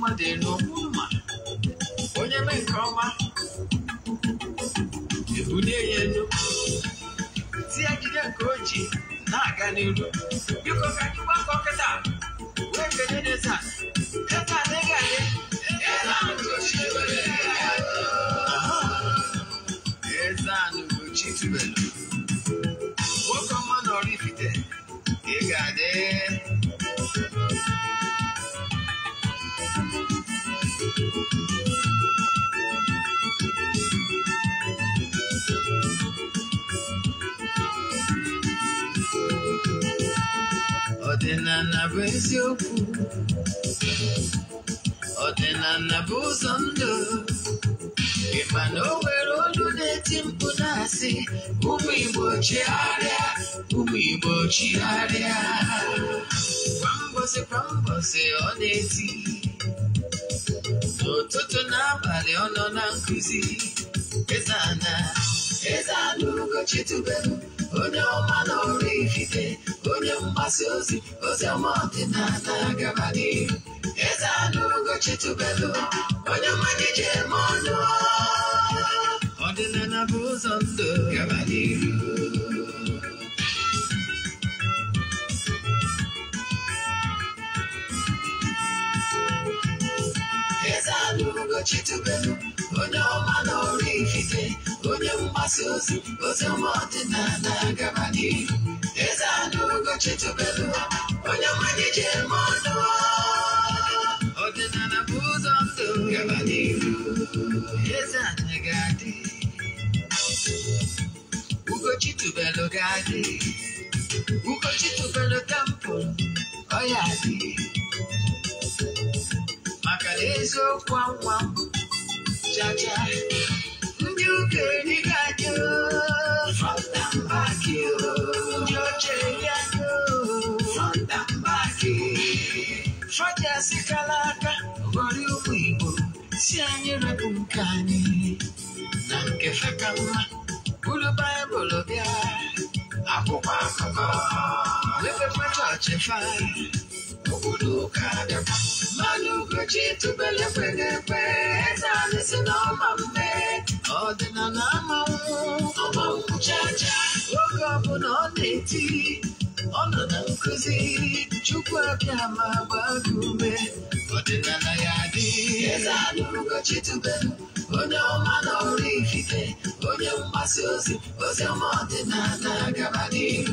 ọma dị n'okpu mma onye mee nke ọma ebulie ya elu tie akịrịa nke oji na-aga n'iru biko ka anyị gbakọ kịta wee kenye n'eze a eziokwu ọdịnala bụ ụzọ ndụ ị o nwere olu na-eti mkpu na-asị ụmụ Igbo chigharịa ụmụ Igbo chigharịa kwa mbosi ọ na-eti n'ụtụtụ n'abalị ọ nọ na nkụzi Eze Ana Eze onye ọma na ifite, onye mgbasa ozi ozi ọma ọdịnala gabadị eze anụ Ugochi onye mmanya ji eme ọnụ ọdịnala bụ ụzọ ndụ gabadị chitube onye ọma n'ọrụ ikike onye mgbasa ozi ozi ọma ọdịnala gaba n'ihu eze akara eziokwu anwa jaja ndị okenye ga-adị front and back ndị Ubudukada Manu Kuchi to Belepenepe Tanis and Omambe Ordinanama Omamu Chacha Woke up on all eighty Ọnọ na nkuzi Chukwu abịa ma gba gị ume ọdịnala ya dị eze anụ ụbọchị tubelu onye ọma na ọrụ ifufe onye mgbasa ozi ozi ọma ọdịnala gaba n'ihu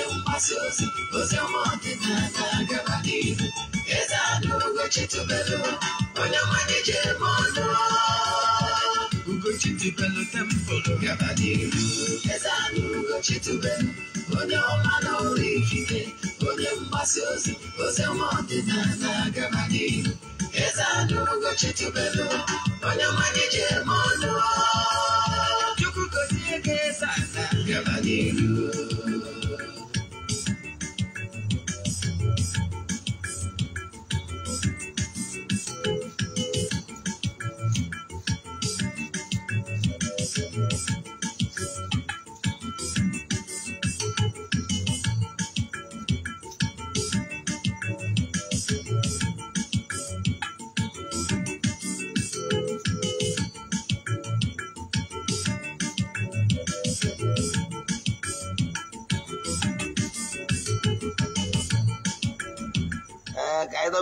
yau masozi uze monte nazaga bakivu ezadugo chitubelo onyamanye chemozo ugo chitubelo tempolo gabadivu ezadugo chitubelo onyamano rikike onye mgbasiozi oze monte nazaga bakivu ezadugo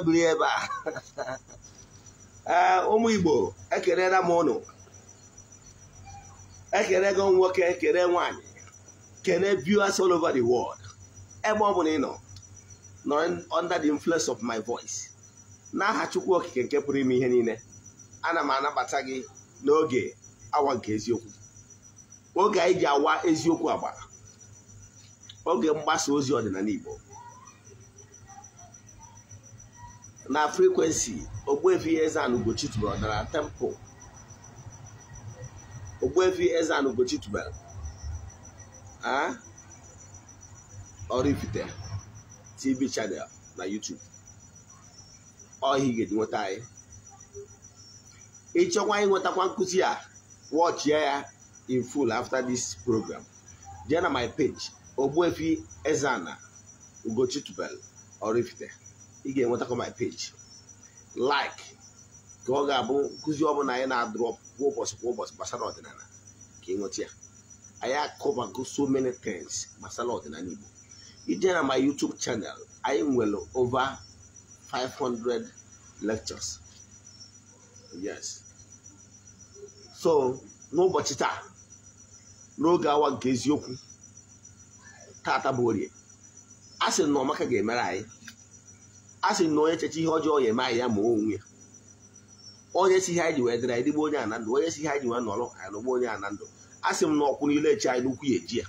biri ebe a ah, ụmụ Igbo ekerela m ụnụ ekele gị nwoke ekele nwanyị kele viewers all over the world ebe ọ bụla ị nọ nọ under the influence of my voice n'aha Chukwu Okike nke pụrụ ime ihe niile ana m anabata gị n'oge awa nke eziokwu oge anyị ji awa eziokwu agba oge mgbasa ozi ọdịnala Igbo na frekwensi ogbefi Eze-Ana Ugochi tubelu ọdara temple Ogbuefi Eze-Ana TV chanel na YouTube ọhịa ga nweta anyị ịchọkwa nwetakwa nkụzi a watch ya in full after this program jee na my page ogbefi Eze-Ana Ugochi ị ga-enwetakọ my page like ka ọ ga-abụ nkụzi ọbụla anyị na-adrọp kwa ụbọchị ụbọchị gbasara ọdịnala ka ị nweta ya anyị akọbago so many things gbasara ọdịnala Igbo ije na my YouTube channel anyị nwere over 500 lectures yes so n'ụbọchị taa n'oge awa nke eziokwu tata bụ orie a sị na ọmaka ga-emere anyị a sị na onye cheche ihe ọjọọ ya eme anyị ya ma onwe ya onye si ha anyị ji wee dịrị anyị dịgbe onye ana ndụ onye si ha anyị ji wee nọrọ ya nọgba onye ana ndụ a sị m na ọkwụ niile echi anyị n'ukwu ya eji ya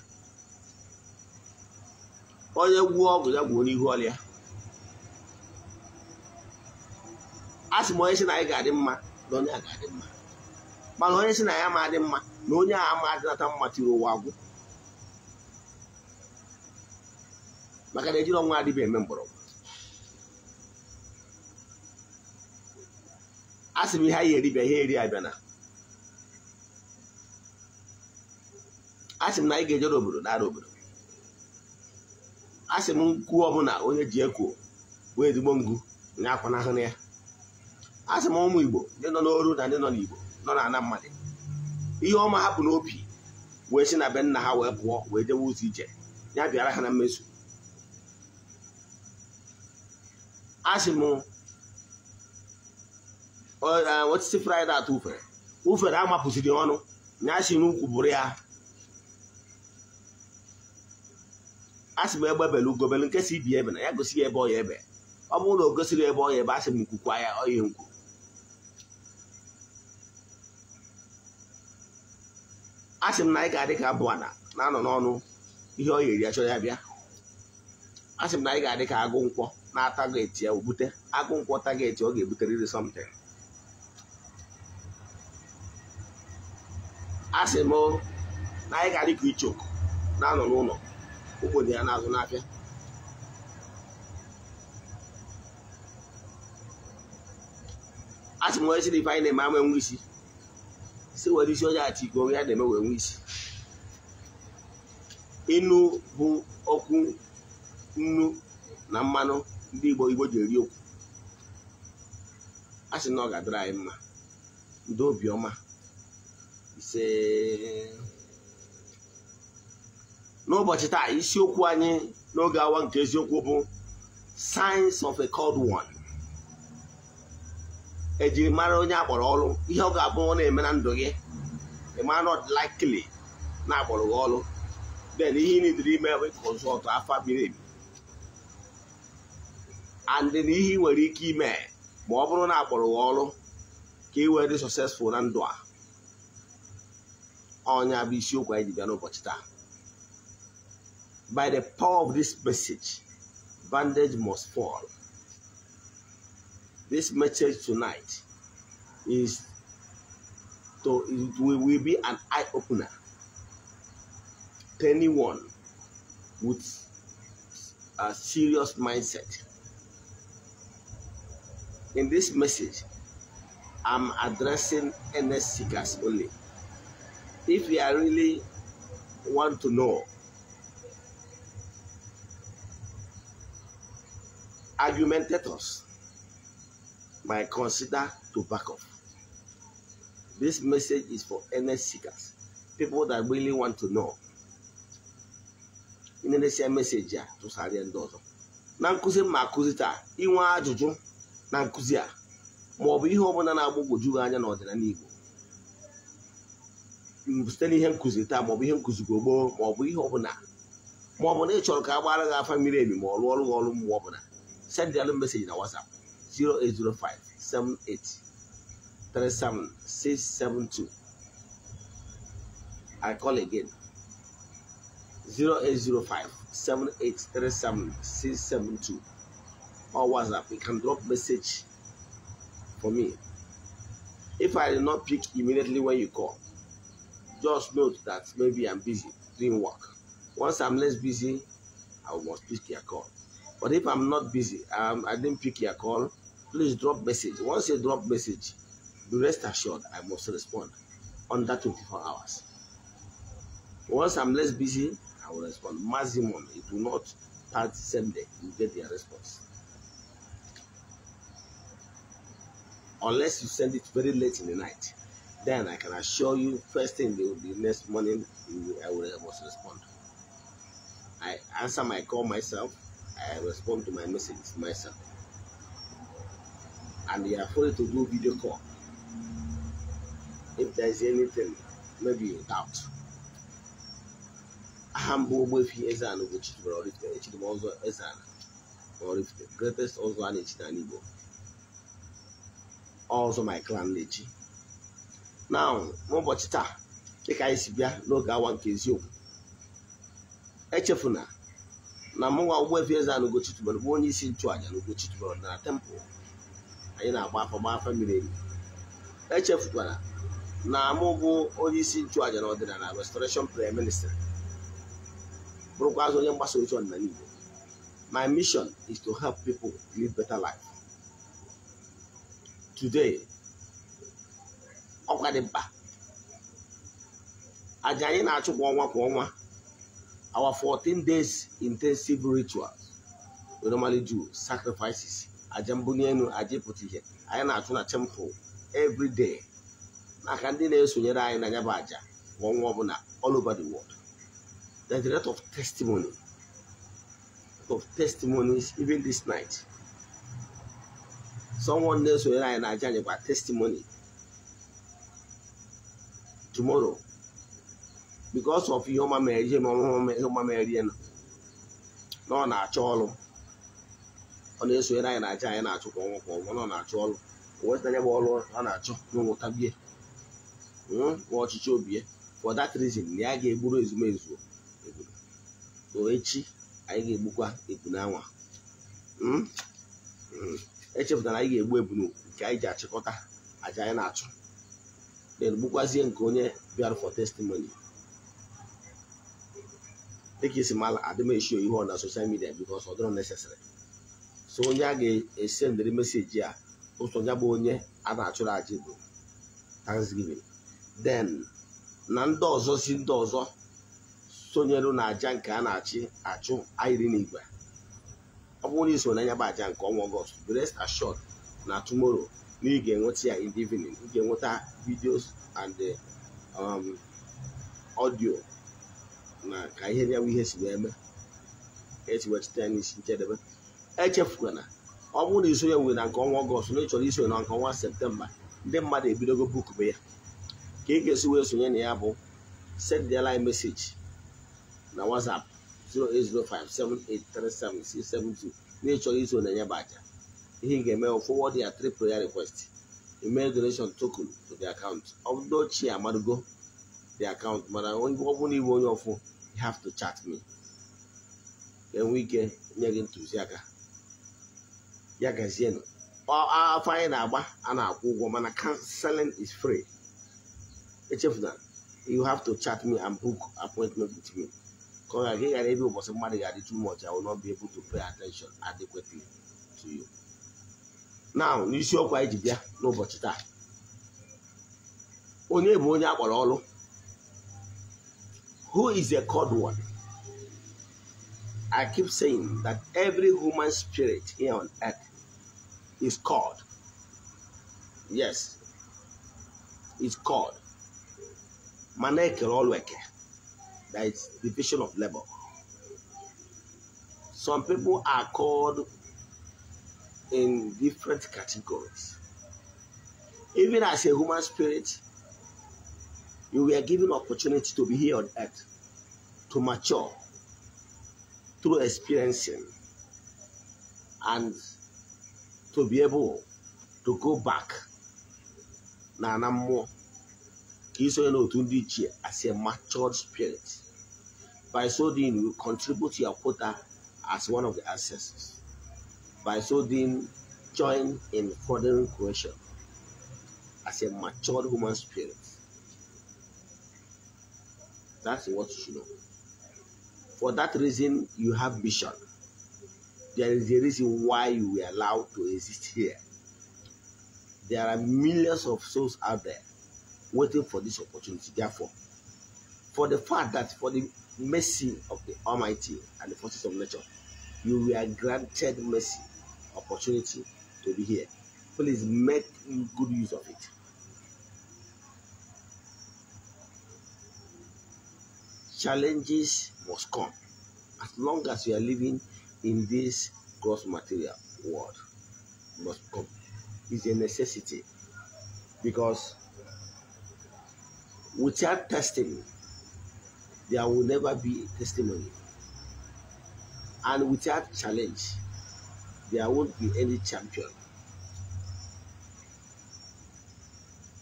onye gwuo ọgwụ ya gwuo n'ihu ọrịa a sị m onye si na anyị ga-adị mma na onye a ga-adị mma mana onye si na ya ma adị mma na onye a ma adịnata mma tiri ụwa agwụ maka na ejiri ọnwa adịbe eme mgbọrọgwụ a sị m ihe anyị eribịa ihe eri abịa na a sị m na anyị ga-ejere obodo nara obodo a sị m nkwuo ọbụla onye ji ekwo wee ezigbo ngu nya akwa na ya a sị m ụmụ igbo ndị nọ n'oru na ndị nọ n'igbo nọ na ana mmadụ ihe ọma hapụ n'opi wee si na be nna ha wee pụọ wee jewe ụzọ ije ya bịara ha na mmezu a sị m osisi fraịde atọ ufere ufere amapụsiri ọnụ na asị n'ukwu bụrụ ya a sị m egbe bere ugobere nke si ibi ebe na ya gosi ya ebe ọ ebe ọ bụrụ na o gosiri ebe ọ ebe a sị m nkwukwa ya ọya nkwu a sị m na anyị ga-adị ka abụ ana na-anọ n'ọnụ ihe ọ yeri ya chọrọ ya bịa a sị m na anyị ga-adị ka agụ nkwọ na-ata ga eti ya obute agụ nkwọ ta ga eti ọ ga-ebuteriri something asị m na anyị ga-adị ka na-anọ n'ụlọ obodo ya n'azụ n'afịa asị m onye si ife anyị na-eme ama enwe isi si nwere isi onye ati iko onye na-eme wee nwe isi ịnụ bụ okwu nnu na mmanụ ndị Igbo Igbo ji eri okwu a sị na ọ ga-adịrị anyị mma ndị obiọma ise n'ụbọchị taa isiokwu anyị n'oge awa nke eziokwu bụ science of a cold one ejiri mara onye akpọrọ ọrụ ihe ọ ga-abụ na-eme na ndụ gị ịmara not likely na-akpọrọ gị ọrụ then ihe ị nidiri ime bụ ka ụzọ ọtọ and na ihe nwere ike ime ma ọ bụrụ na akpọrọ gị ọrụ ka ị wee dị successful na ndụ a onye isiokwu anyị ji bịa n'ụbọchị taa by the power of this message bandage must fall this message tonight is to it will, will be an eye opener to anyone with a serious mindset in this message i'm addressing NS seekers only if you are really want to know. Argumentators might consider to back off. This message is for NS seekers, people that really want to know. Ị na-enesi meseji a tụsarịa ndị ọzọ na nkụzi ma akụzi taa inwe ajụjụ na nkụzi a ma ọ bụ bụla na-agbagwoju site n'ihe nkụzi taa maọbụ ihe nkụzi gbo gboo maọbụ ihe ọbụla maọbụ na ị chọrọ ka a gbara gị afa mmiri ebi ma ọ lụọ ọrụ gị ọrụ mgbe ọbụla send alụ meseji na WhatsApp 08057837672 I call again 08057837672 or WhatsApp you can drop message for me if I did not pick immediately when you call just note that maybe I'm busy doing work. Once I'm less busy, I must pick your call. But if I'm not busy, um, I didn't pick your call, please drop message. Once you drop message, be rest assured I must respond under 24 hours. Once I'm less busy, I will respond. Maximum, it will not the same day. You get your response. Unless you send it very late in the night then I can assure you, first thing they will be next morning, I will must respond. I answer my call myself, I respond to my messages myself. And they are free to do video call. If there is anything, maybe you doubt. I am Ezana Guchitubra or if the Echidimozo Ezana or if the greatest also an Echidanibo. Also my clan Lechi. na n'ụbọchị taa dịka anyị si bịa n'oge awa nke eziokwu echefuna na mụnwa Ogbuefi Eze-Ana Ugochi bụ onye isi nchụàja na Ugochi na tempụl anyị na-agba afọ gba afọ mmiri emi echefukwara na mụ bụ onye isi nchụàja na ọdịnala restoration prayer ministry onye mgbasa ozi ọdịnala Igbo my mission is to help people live better life today ọkwa dị mkpa aja anyị na-achụ kwa ọnwa kwa ọnwa our 14 days intensive rituals we normally do sacrifices aja mbunienu enu aja ịpụta ihe anyị na-achụ na temple every day maka ndị na-esonyere anyị na ya bụ aja kwa ọnwa ọbụla all over the world the a of testimony of testimonies even this night someone na-esonyere anyị na aja anyị gwa testimony tomorrow because of ihe ọma mere ihe ọma mere na ọ na-achọ ọrụ ọ na-esonyere anyị na aja anyị na-achụ kwa ọnwa kwa ọnwa na ọ na-achọ ọrụ wetanya bụ ọrụ ọ na-achọ n'ụtabie hmm? nwa ọchịchị obi ya for that reason na ya ga-egburu ezumezu so echi anyị ga-egbukwa ebu n'anwa hmm? hmm. echefutara anyị ga-egbu ebu nke anyị ji achịkọta aja anyị na-achụ na-egbukwazie nke onye bịara for testimony dịka isi mala adịmeshi ihe ọ na soshal midia because ọ dịrọ so onye a ga-esendịrị meseji a ụsọ ya bụ onye a na-achụrụ aja bụ thanksgiving den na ndị ọzọ si ndị ọzọ sonyeru na aja nke a na-achị achụ ayiri n'igwe ọ bụrụ na iso n'anya bụ aja nke ọnwa ọgọst brest na tomorrow na ị ga-enweta ya in the evening ị ga-enweta videos and um audio na ka ihe ya ihe si wee eme esi ya n'isi njedebe echefukwana na ọ bụrụ na iso ya were na nke ọnwa ọgọst na ị chọrọ iso na nke ọnwa septemba ndị mmadụ ebidogo bukube ya ka ị ga-esi wee sonye na ya bụ send their line message na whatsapp 08057837672 na ị chọrọ iso na ya bụ aja ihe ị ga-eme forward ya three prayer request email donation token to the account ọ bụrụ ochie the account mana ọ bụrụ na iwe onye ọfụ you have to chat me enwe ike nye gị ntụziaka ya gazienụ afọ anyị na-agba a na-akwụ ụgwọ mana counseling is free echefuna you have to chat me and book appointment with me ka ọ ghara ebe ụbọchị mmadụ ga-adị too much I will not be able to pay attention adequately to you. Now n'isiokwu anyị ji bịa n'ụbọchị taa onye bụ onye who is a called one i keep saying that every human spirit here on earth is called yes it's called mana ekere ọrụ that is division of labor some people are called in different categories. Even as a human spirit, you were given opportunity to be here on earth, to mature through experiencing, and to be able to go back na ana mmụọ ka iso as a matured spirit. By so doing, you contribute to your quota as one of the ancestors by so doing join in furthering creation as a matured human spirit. That's what you should know. For that reason, you have vision. There is a reason why you were allowed to exist here. There are millions of souls out there waiting for this opportunity. Therefore, for the fact that for the mercy of the Almighty and the forces of nature, you were granted mercy opportunity to be here. Please make good use of it. Challenges must come as long as we are living in this gross material world. Must come. It's a necessity because without testing, there will never be testimony. And without challenge, there won't be any champion.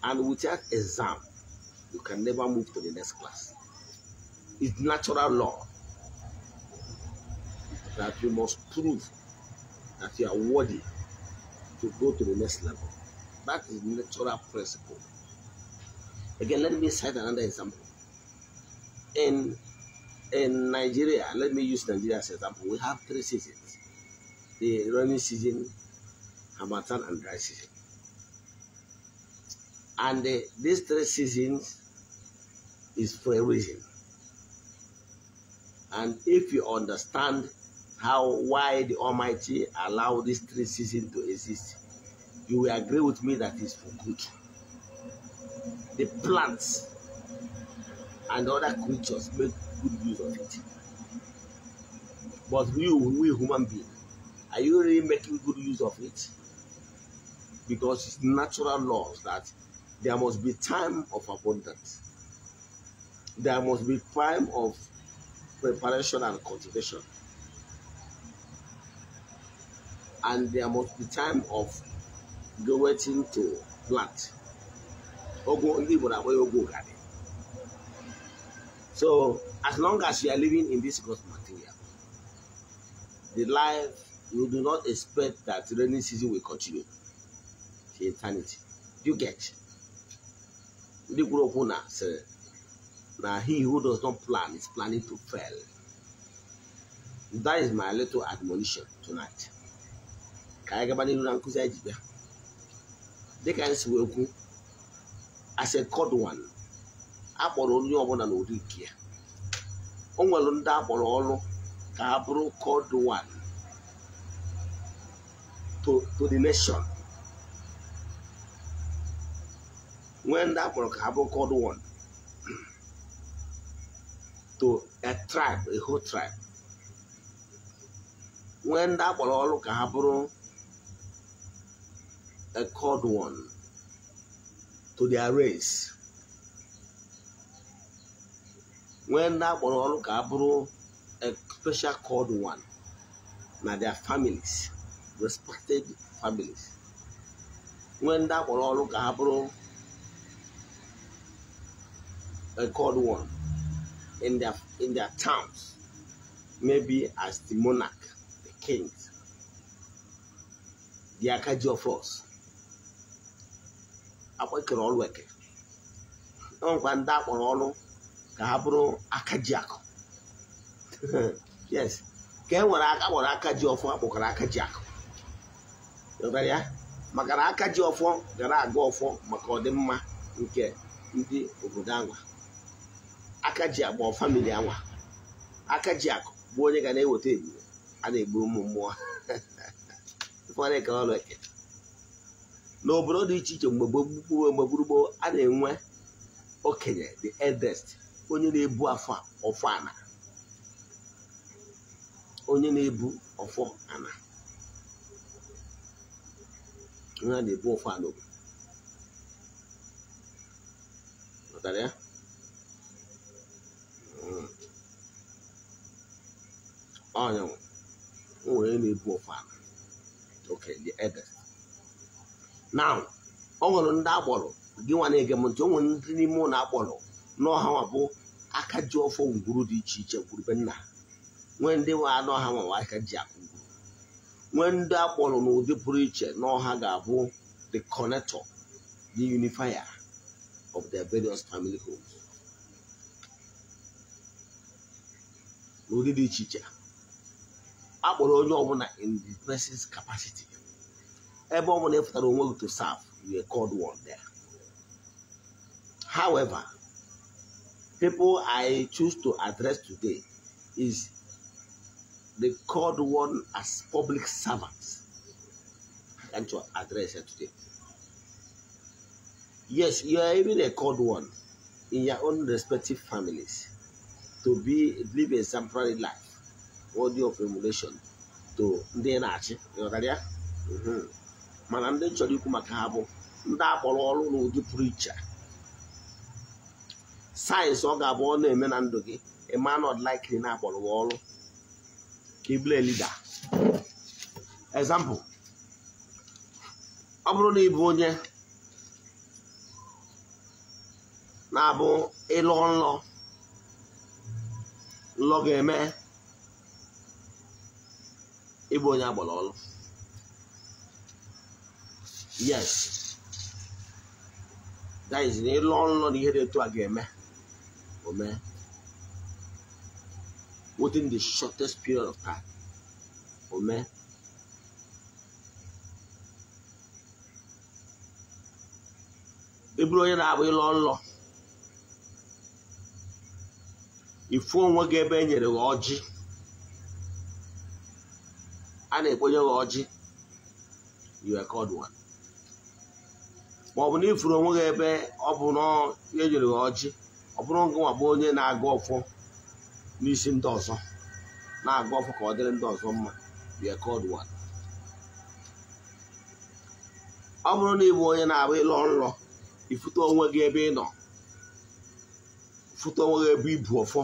And without exam, you can never move to the next class. It's natural law that you must prove that you are worthy to go to the next level. That is natural principle. Again, let me cite another example. In in Nigeria, let me use Nigeria as an example. We have three seasons the rainy season, Hamatan and dry season. And uh, these three seasons is for a reason. And if you understand how why the Almighty allowed these three seasons to exist, you will agree with me that it's for good. The plants and other creatures make good use of it. But we, we human beings, are you really making good use of it? Because it's natural laws that there must be time of abundance. There must be time of preparation and cultivation. And there must be time of waiting to plant. So, as long as you are living in this gross material, the life you do not expect that rainy season will continue to eternity. Do you get? Ndị kwuru okwu na sịrị na he who does not plan is planning to fail. That is my little admonition tonight. Ka anyị gaba n'ihu na nkụzi anyị ji bịa. Dịka anyị si wee kwu, as a cod one, a kpọrọ onye ọbụla n'ụdị nke ya. O nwere ndị a kpọrọ ọrụ ka ha bụrụ cod one. to, to the nation. When that Morocco called one to a tribe, a whole tribe, when that Morocco a called one to their race, when that Morocco a special called one, now their families respected families When ndị akpọrọ all ka ha bụrụ a called one in their, in their towns maybe as the monarch the kings the akaji of us akpọkere ọrụ eke enwekwa ndị akpọrọ ọrụ ka ha bụrụ akaji akụ yes ka e nwere aka kpọrọ akaji ọfụ akpọkara akaji akụ ya maka na aka ji ọfọ gara aga ọfọ maka ọdịmma nke ndị obodo anwa aka ji agba famili anwa aka ji akụ bụ onye ga na-eweta ebube a na-egbu ụmụ mmụọ n'obodo dị iche iche mgbe gbogbo mgbe gburugburu a na-enwe okenye the eldest onye na-ebu afọ ọfọ ana onye na-ebu ọfọ ana ha na-ebu ofu alụgo matara ya hmm. ọnyanwụ o nwere na-ebu ofu ala okenye ede na ọ nwere ndị akpọrọ gị nwa na-ege m ntị o nwere ndị n'ime ụlọ akpọrọ n'ọha nwa bụ aka ji ọfọ ngwuru dị iche iche gwurube nna nwee ndị nwa anụ ọha nwa aka ji akụ When that one n'ụdị pụrụ iche no oha the connector the unifier of their various family homes did dị iche I akpọrọ onye ọbụla in the person's capacity ebe ọbụla ịpụtara onwe gị to serve We are called one there however people i choose to address today is they called one as public servants. can to address her today? Yes, you are even a called one in your own respective families to be live a exemplary life, worthy of emulation to ndị na-achị ịghọtara mm-hmm. mana ndị chọrọ ikwu maka ha bụ ndị akpọrọ ọrụ n'ụdị pụrụ iche sayensị ọ ga-abụ ọ na-eme na ndụ gị ịma na ọdịlaikiri na-akpọrọ ọrụ ka ị bụrụ example ọ bụrụ na ịbụ onye na-abụ ịlọ nlọ nlọ ga-eme ịbụ onye agbara ọlụ yes that is na ịlọ nlọ na ihe dị etu a ga-eme omee within the shortest period of time. Amen. Eburu onye na-abụ ịlọ nlọ ifu onwe gị ebe e nyere gị ọjị a na-ekponye gị ọjị you are called one ma ọ bụ na ifuru onwe gị ebe ọ bụ na e nyere gị ji ọ bụrụ ngụnwa bụ onye na-aga ọfọ n'isi ndị ọzọ na-agụ ọfọ ka ọ dịrị ndị ọzọ mma bịa kọdụ one ọ bụrụ na ị bụ onye na-abụ ịlọ nlọ ifute onwe gị ebe ị nọ fute onwe gị ebe ibu ọfọ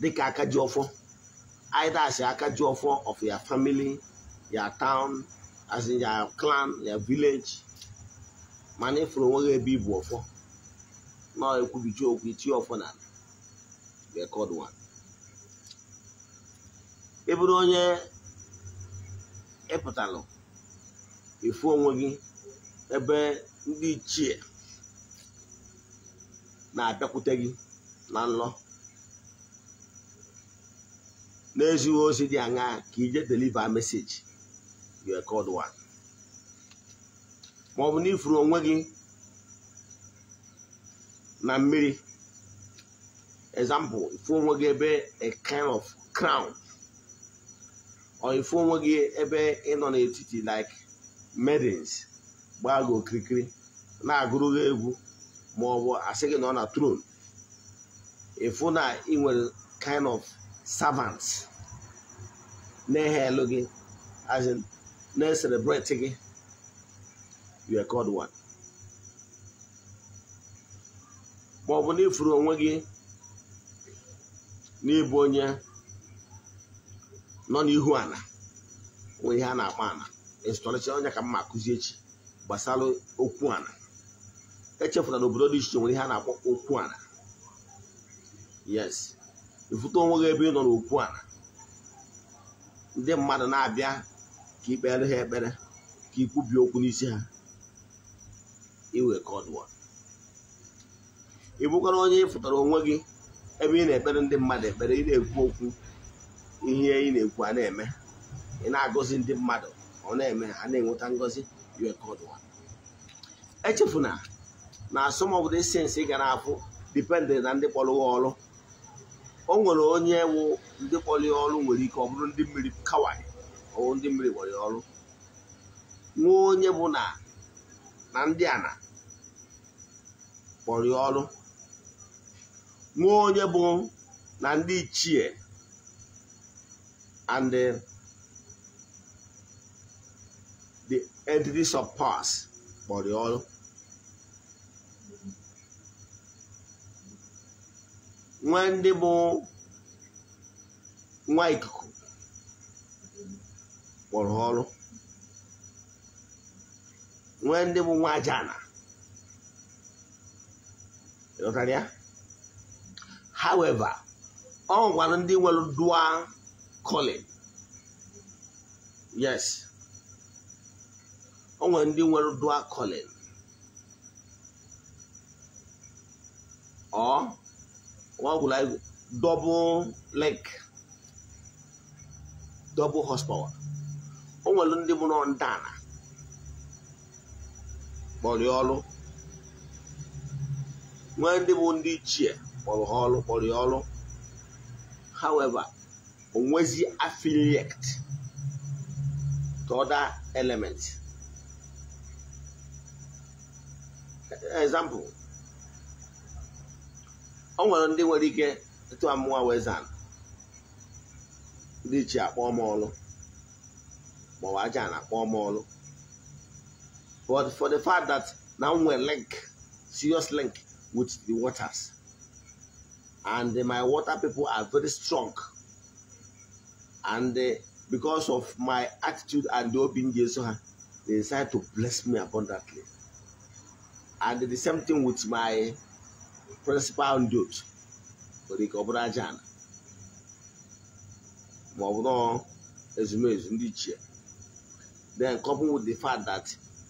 dịka aka ji ọfọ aidas aka ji ọfọ of ya family ya town as ya clan ya vileji mana ịfụrụ onwe gị ebe ibu ọfọ na ekwubiji okwu itie ọfọ na ala the ị bụrụ onye ịpụtalụ ifu onwe gị ebe ndị ichie na-abịakwute gị na nlọ n'ezighị ozi dị aṅa ka ije deliva meseji your ma ọ bụ na ifuru onwe gị na mmiri example ifu onwe gị ebe a kind of crown or ifu onwe gị ebe ị nọ n'etiti like medins gbaa gị okirikiri na-agụrụ egwu ma ọ bụ asị gị nọ na tron ifu na ị nwere kind of servants na-ehe elu gị as in na-celebrate gị you called one ma ọ bụ na ifuru onwe gị n'ịbụ onye nọ n'ihu ala wụ ihe a na-akpọ ala ịzụtọrịcha onye ka mma akụzi echi gbasara okwu ala echefula na obodo dị iche nwere ihe a na-akpọ okwu ala yes ifụta onwe gị ebe ị nọ n'okwu ala ndị mmadụ na-abịa ka ikpere ha ekpere ka ikwubie okwu n'isi ha iwe ka ọ ị onye ịfụtara onwe gị ebe ị na-ekpere ndị mmadụ ekpere ị na-ekwu okwu ihe ị na-ekwu a na-eme ị na-agọzi ndị mmadụ ọ na-eme ha a na-enweta ngọzi echefuna na asọmọbodo sensị ị ga gara afụ dipendent na ndị kpọrọ ya ọrụ o nwere onye wụ ndị kpọrọ ya ọrụ nwere ike ọ bụrụ ndị mmiri kawai ọwụ ndị mmiri kpọrọ ya ọrụ nwee onye bụ na ndị ana kpọrọ ya ọrụ nwa onye bụ na ndị ichie and the, the entities of past kpọrọ ọrụ nwe ndị bụ nwa ikuku kpọrọ ọrụ nwe ndị bụ nwa ajana ịghọtara ya however ọ nwere ndị nwere dua calling yes ọ nwere ndị nwere dua calling ọ nwagwụla double leg double horsepower o nwere ndị mụrụ ndana kpọrọ ọrụ nwee ndị bụ ndị ichie kpọrọ ha ọrụ kpọrọ ya ọrụ however onwezi affiliate to other elements example ọ nwere ndị nwere ike etu amụwa wezan ndị chi akpọ m ọrụ maọbụ aja na-akpọ m ọrụ but for the fact that na m nwere link serious link with the waters and my water people are very strong and uh, because of my attitude and the open Jesus, uh, they decided to bless me abundantly. And the same thing with my principal dude, Rick Obrajan. Then coupled with the fact that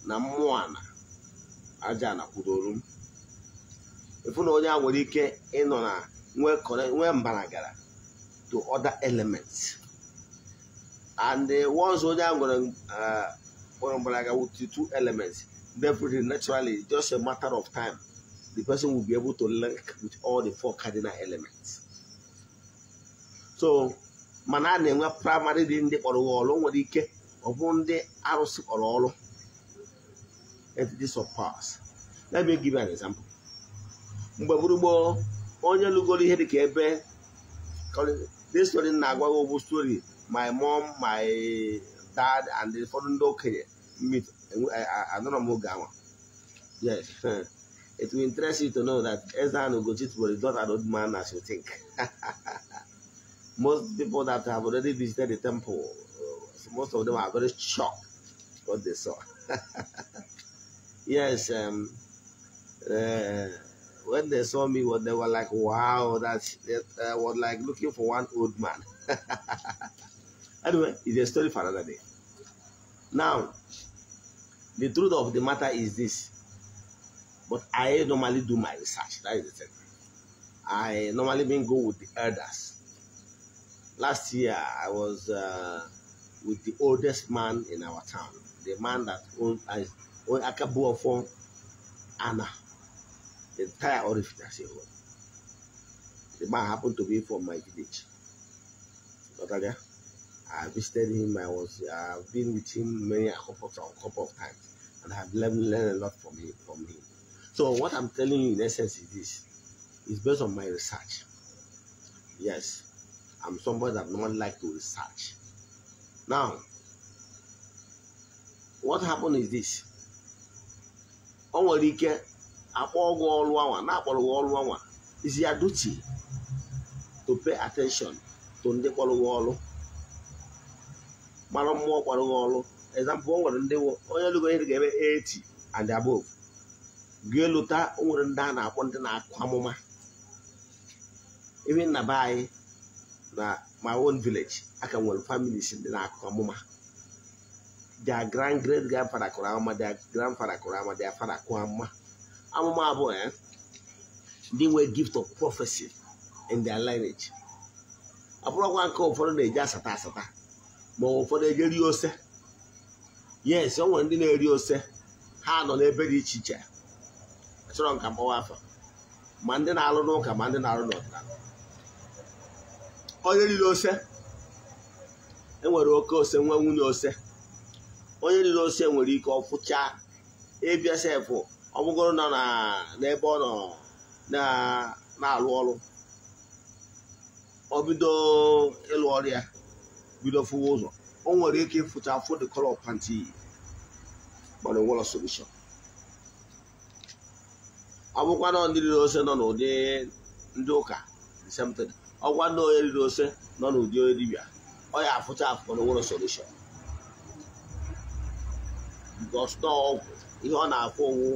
Namuana Ajana Kudorum. If you know that, what you can, nwee correct nwee mbaragara to other elements and uh, once onye ahụ nwere eh, mbaraga with two elements definitely naturally just a matter of time the person will be able to link with all the four cardinal elements so mana a na-enwe primary dị ndị kpọrọ ọrụ nwere ike ọ bụ ndị arụsị kpọrọ ọrụ this of pass. let me give you an example mgbe gburugburu onye lụgoro ihe dịka ebe this story na-agwa about ogbu story my mom my dad and ụfọdụ ndị okenye meet anọrọ m oge more. yes it will interest you to know that Esther and Ugochit not an old man as you think most people that have already visited the temple uh, most of them are very shocked what they saw yes um, uh, when they saw me, well, they were like, wow, that uh, was like looking for one old man. anyway, it's a story for another day. Now, the truth of the matter is this. But I normally do my research. That is the thing. I normally been go with the elders. Last year, I was uh, with the oldest man in our town. The man that owned, a uh, owned Akabu Anna entire Orifit as a whole. The man happened to be from my village. Natalia, I visited him. I was I've been with him many a couple of, couple of times, and I've learned, learned a lot from him. From him. So what I'm telling you in essence is this: it's based on my research. Yes, I'm somebody that not like to research. Now, what happened is this: Onwere Ike akpọ ọgwụ ọrụ anwa na-akpọrọ gị ọrụ anwa is ya duty to pay attention to ndị kpọrọ gị ọrụ mara mmụọ kpọrọ gị ọrụ example o nwere ndị onye lụgo ihe ga-eme 80 and above gị lụta o nwere ndị a na-akpọ ndị na-akụ amụma ebe nna be anyị na my own village ka nwere families ndị na-akụ amụma their grand great grandfather kụrụ ama their grandfather kụrụ ama their father kụọ ama amụma abụọ ya eh, ndị nwee gift of prophecy in their lineage abụrụkwa nke ụfọdụ na-eji asata asata ma ụfọdụ eje rie ose yes o nwere ndị na-eri ose ha nọ n'ebe dị iche iche chọrọ nka mkpọwa afọ ma ndị na-alụ n'ụka ma ndị na-alụ n'ọdịnala onye riri ose enwere oke ose nwa nwunye ose onye riri ose nwere ike ọfụcha ịbịa sefụ ọbụgoro nọ na n'ebe ọ nọ na-alụ ọrụ ọ bido ịlụ ọrịa bido fụwa ụzọ o nwere ike ịfụcha afụ the color of pant iyi mana ọ bụkwa na ndị riri ose nọ n'ụdị ndị ụka ọgwa ndị onye riri ose nọ n'ụdị onye dibia ọ ya afụcha afụ mana nwere solution because ihe ọ na-afụ onwu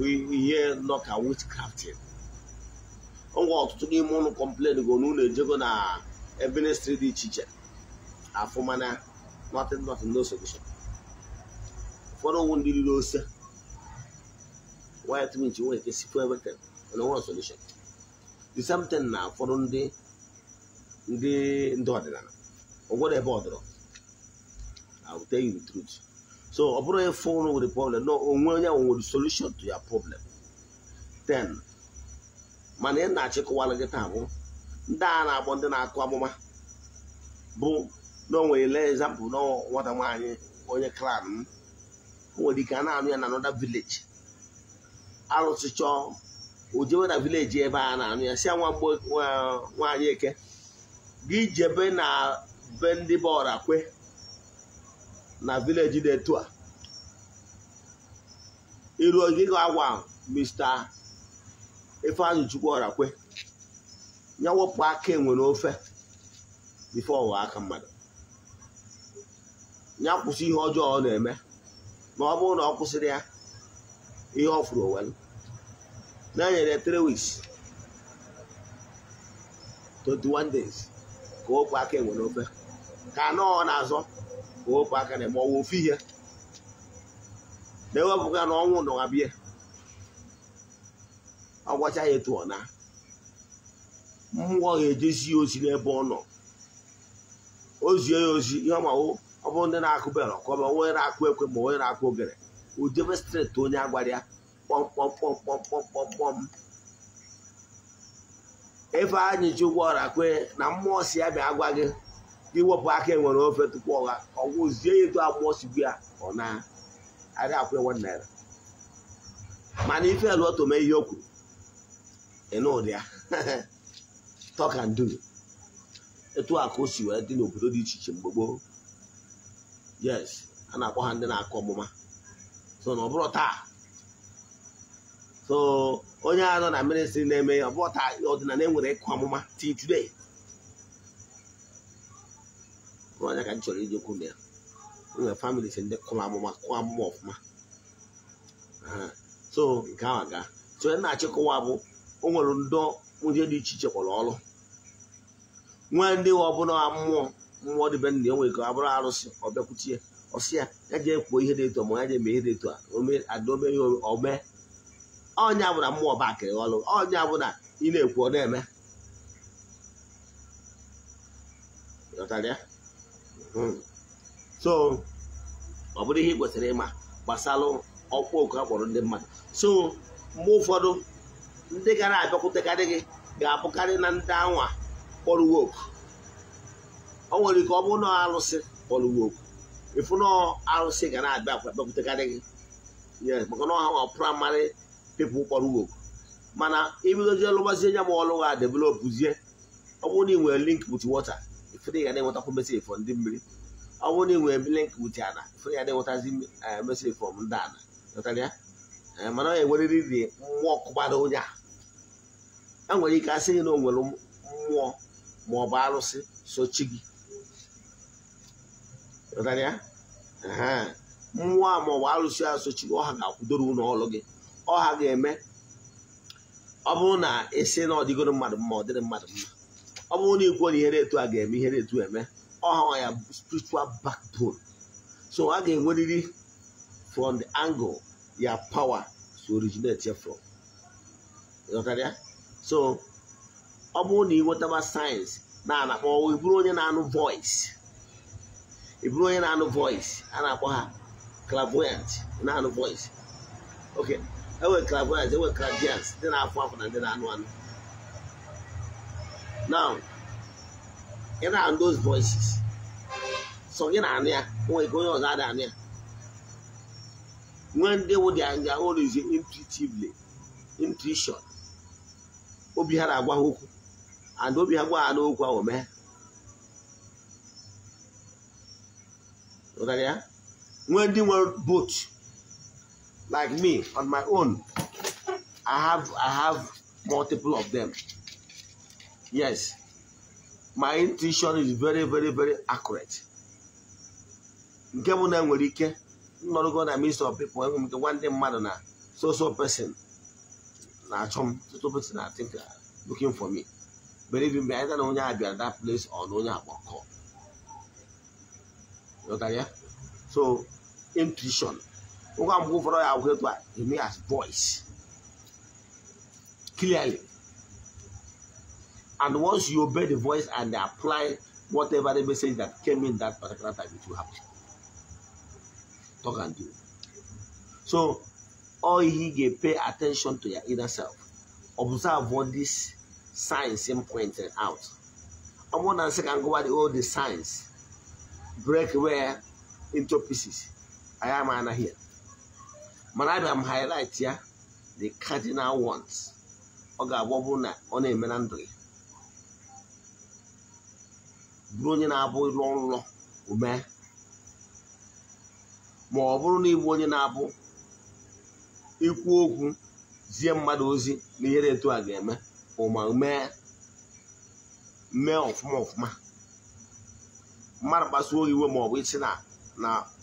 We ihe nọka witchcrafting ngwa ọtụtụ n'ime ụnụ kọmplen go na ụnụ ejego na ebe ministri dị iche iche afụma na nothing nothing no solution For one ụfọdụ ụwụ ndị riri ose white mint nwere ike sikwa everything No one solution the same thing na ụfọdụ ndị ndị ndị ọdịnala ụgwọdọ ebe ọ dọrọ I will tell you the truth so ọ bụrụ efe ụrụ nwere problem na onwe onye ahụ nwere solution to ya problem then mana ị na-achịkọwara gị taa bụ ndị a na-akpọ ndị na-akụ amụma bụ na o nwere ele example na nwata nwaanyị onye klan m o nwere ike a na-anụ ya na another vileji arụsị chọọ na vileji ebe a na-anụ ya si ya nwa nwaanyị eke gị jebe na be ndị bọọlụ akwe na vileji dị etu a iru ogige agwa Mr. Ifeanyi ọrakwe ya wepụ aka enwere ofe bifo ọwa aka mmadụ ya kwụsị ihe ọjọọ ọ na-eme ma ọ bụrụ na ọ kwụsịrị ya ihe ọfụrụ fụrụ na-enyere 3 weeks 21 days ka o aka enwere ofe ka anọọ na-azọ ofu aka na-eme ọnwụ ofu ihe na-ewepụga na ọnwụ na abịa ọ gwacha ya etu ọ na mmụọ ga-ejezi ya ozi n'ebe ọ nọ ozie ya ozi ihe ma ọ bụrụ ndị na-akụ bere ọkọba onye na-akụ ekwe ma onye na-akụ ogere ojebe streti onye agwara ya kpọmkpọmkpọmkpọmkpọmkpọm ebe anyị ji ụgwọ ọra kwe na mmụọ si ya bịa agwa gị iwepụ aka enwere ofe tupu ọgha ọgwụzie etu agbụgbọ sigbu ya ọ na aga akwụ ewe naira mana ife eluoto mee ihe o kwuru ịnụ ụdị ya talk and do etu a ka o si wee dị n'obodo dị iche iche mgbe gboo yes a na-akpọ ha ndị na-akụ ọmụma so na ọ bụrụ taa so onye a nọ na ministri na-eme ọ bụrụ taa ọdịnala enwere ịkụ ọmụma till today ọnya ka m chọrọ ijekwu na ya nwere famili si ndị kụrụ amụma kụọ amụma ọfụma so nke ahụ aga so onye na-achịkọwa bụ o nwere ndọ ndị dị iche iche kwọrọ ọrụ nwee ndị ọbụla mmụọ mmụọ dịbe nna ya nwere ka ọ bụrụ arụsị ọ bịakwuchie ọsị ya ya ji kwuo ihe dị eto ma ya jee mee ihe dị eto adaome ya omee ọnya bụ na mmụọ ba akịrị ọrụ ọnya bụ na ị na-ekwu ọ na-eme Hmm. so ọ bụrụ ihe ị kwesịrị ịma gbasara ọkwa oku a ndị mmadụ so mgbe ụfọdụ ndị gara abịakwutekarị gị ga-abụkarị na ndị anwa kpọrọ woku o nwere ike ọ bụrụ na alụsị kpọrọ woku ịfụ na alụsị ga na-abịa abịakwutekarị gị maka na ọha praịmarị pipụl kpọrọ woku mana ibidozie lụgbazie nya ma ọlụ ga developụzie ọ bụrụ na ị nwere link with water ifere ya na-enwetakwu mesiri fọ ndị mmiri ọ bụrụ na ị nwere link with ana ifere ya na-enwetazi eh, mesiri fọ ndị ana natara ya eh, mana ọ enwerịrị mmụọ kụgbara onye a a e nwere ike asị gị na o nwere mmụọ ma ọ bụ arụsị sochi gị natara ya mmụọ a ma ọ bụ arụsị a sochi gị ọha ga-akwụdoro ụlọ ọrụ gị ọha ga-eme ọ bụrụ na ị esi na ọ dịgoro mmadụ mma ọ dịrị mmadụ mma ọ bụrụ na ikwuo na ihere etu a ga-eme ihere etu eme ọha ya spiritual backbone so a ga-enwerịrị from the angle ya power to originate from. ya so ọ bụrụ na ị sayensị na-anakpọ ịbụrụ onye na-anụ voice ịbụrụ onye na-anụ voice a na-akpọ ha clairvoyant na-anụ voice ok enwere clairvoyant enwere clairvoyance ndị na-afụ afụ na ndị na-anụ anụ now ị and those voices so gị na anya ya nwee ike onye ọzọ ada anụ ya nwee ndị wụ dị anya orizi intuitively intuition obi ha na-agwa ha okwu and obi ha gwa ha n'okwu ahụ mee ya nwee ndị nwere boat like me on my own i have i have multiple of them Yes, my intuition is very very very accurate. nke bụ na nwere ike nọrụgo na minst of people enwe m nke nwanne mmadụ So, so person na-achọ so person I think uh, looking for me believe me either na onye a bịara that place or no na onye You ya so intuition ụgwa mgbe ụfọdụ ya agwụ etu a he may as voice clearly and once you obey the voice and apply whatever the message that came in that particular time, it will happen. Talk and do. So, all he get pay attention to your inner self. Observe what these signs him pointed out. And one to can go at all the signs. Break where into pieces. I am Anna here. But I am highlight here the cardinal ones. Oga Wobuna on a menandry. bụrụ onye na-abụ ịlọ nlọ ume ma ọ bụrụ na ịbụ onye na-abụ ikwu okwu zie mmadụ ozi na ihere etu a ga-eme ụma mee mee ọfụma ọfụma mmadụ kpasuo iwe ma ọ bụ isi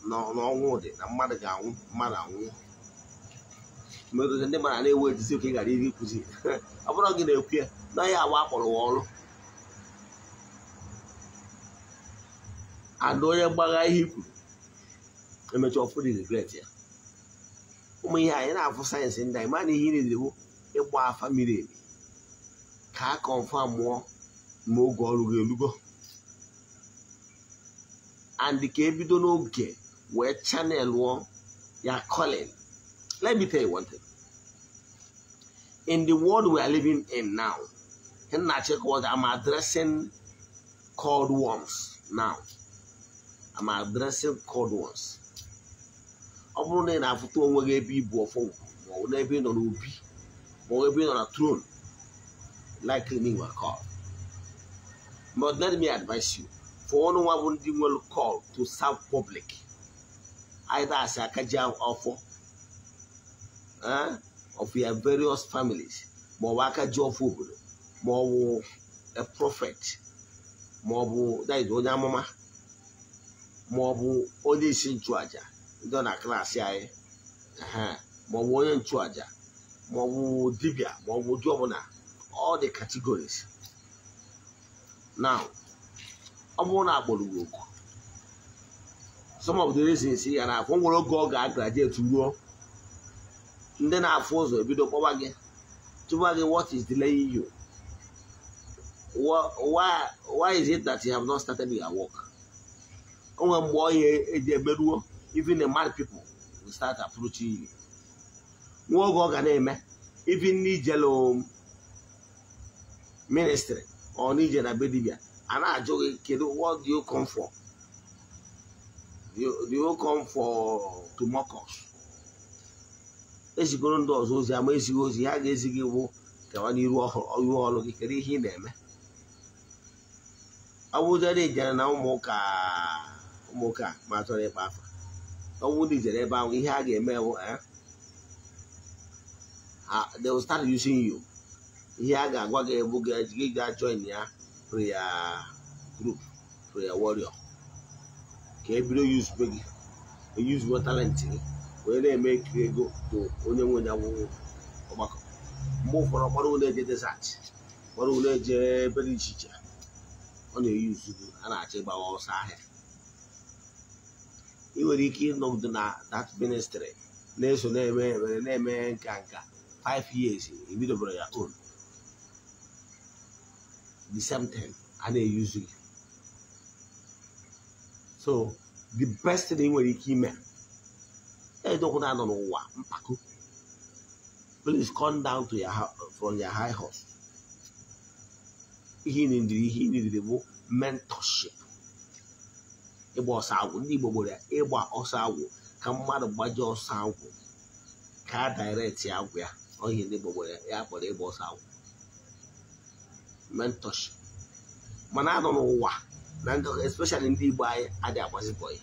na ọnwụ dị na mmadụ ga-anwụ mmadụ anwụ mgbe ndị mara na ewe ejizi ka ghara iri ikụzi ọ bụrụ gị na-ekwu ya na ya agba akpọrọ wa ọrụ ada onye gbagha ihe ikwuru emecha ọfụrụ regret ya ụmụ ihe anyị na-afụ sayensị ndị anyị mana ihe niile ịgba afa miri emi ka a kọnfa mụọ mgbe oge ọrụ gị elugo and ka ebido n'oge wee chanel ya calling let me tell you one thing in the world we are living in now nna chekwa i'm addressing cold worms now I'm addressing cold ones ọ bụrụ na ị na-afụta onwe gị ebe ibu ọfọ ma ọ n'ebe ị nọ n'obi ma ọ ebe ị on na throne likely me were called but let me advise you for one nwa bụ ndị nwere call to serve public either as a akaji ọfọ eh, of your various families more ọ job akaji ọfọ a prophet more that is bụ onye amụma ma ọ bụ onye isi nchụaja ndị na klaasị anyị ma ọ bụ onye nchụaja ma ọ bụ dibịa ma ọ bụ ụdị ọbụla ọ dị categories now ọ bụrụ na agbụrụ oku some of the reasons ya na akwụ nwere oge ọ ga-agraduate ruo ndị na-afụ ụzọ ebido kpọba gị tụba gị what is delaying you why, why is it that you have not started your work onwe mgbe onye eji emeruo even the mad pipo will start approaching you nwa oge ọ ga na-eme even n'ijelu um, ministry ọ n'ije na be dibia a na-ajụ gị kedu what do you come for do you come for to mock ezigoro ndị ọzọ ozi ama ezighị ozi ha ga-ezi gị bụ kewa n'iru ọrụ gị kedu ihe ị na-eme ọ bụrụ na ị na ụmụ ụka nwoke a ma chọrọ ịkpa afa ọnwụ dị jere ebe ahụ ihe a ga-eme bụ eh, they will start using you ihe a ga-agwa gị ebu gị ga join ya prayer group prayer warrior ka e bido yuzube gị eyuzuo talent gị wee na-eme ekiri ego bụ onye nwe ya nwụ ọgbakọ mgbe ụfọdụ ọkpọrọ ụlọ eje desert kpọrọ ụlọ eje ebe dị iche iche ọ na-eyuzu gị a na-achọ ịgbawa ọsọ ahịa ị nwere ike ịnọgide na that ministry na-eso na-eme were na-eme nka nka 5 years ebidobere ya own the same thing a na-eyuzu so the best thing ị nwere ike ime edokwu na anọ n'ụwa mpako please come down to your from your high horse ihe ị nidiri ihe ị nidiri bụ mentorship ịgba ọsọ agwụ ndị Igbo gbere ịgba ọsọ agwụ ka mmadụ gbaji ọsọ agwụ ka a agwụ ya ohi ndị Igbo gbere ya kpọrọ ịgba ọsọ agwụ mentorship mana anọ n'ụwa na ndị especially ndị Igbo anyị adị agbazibọ ya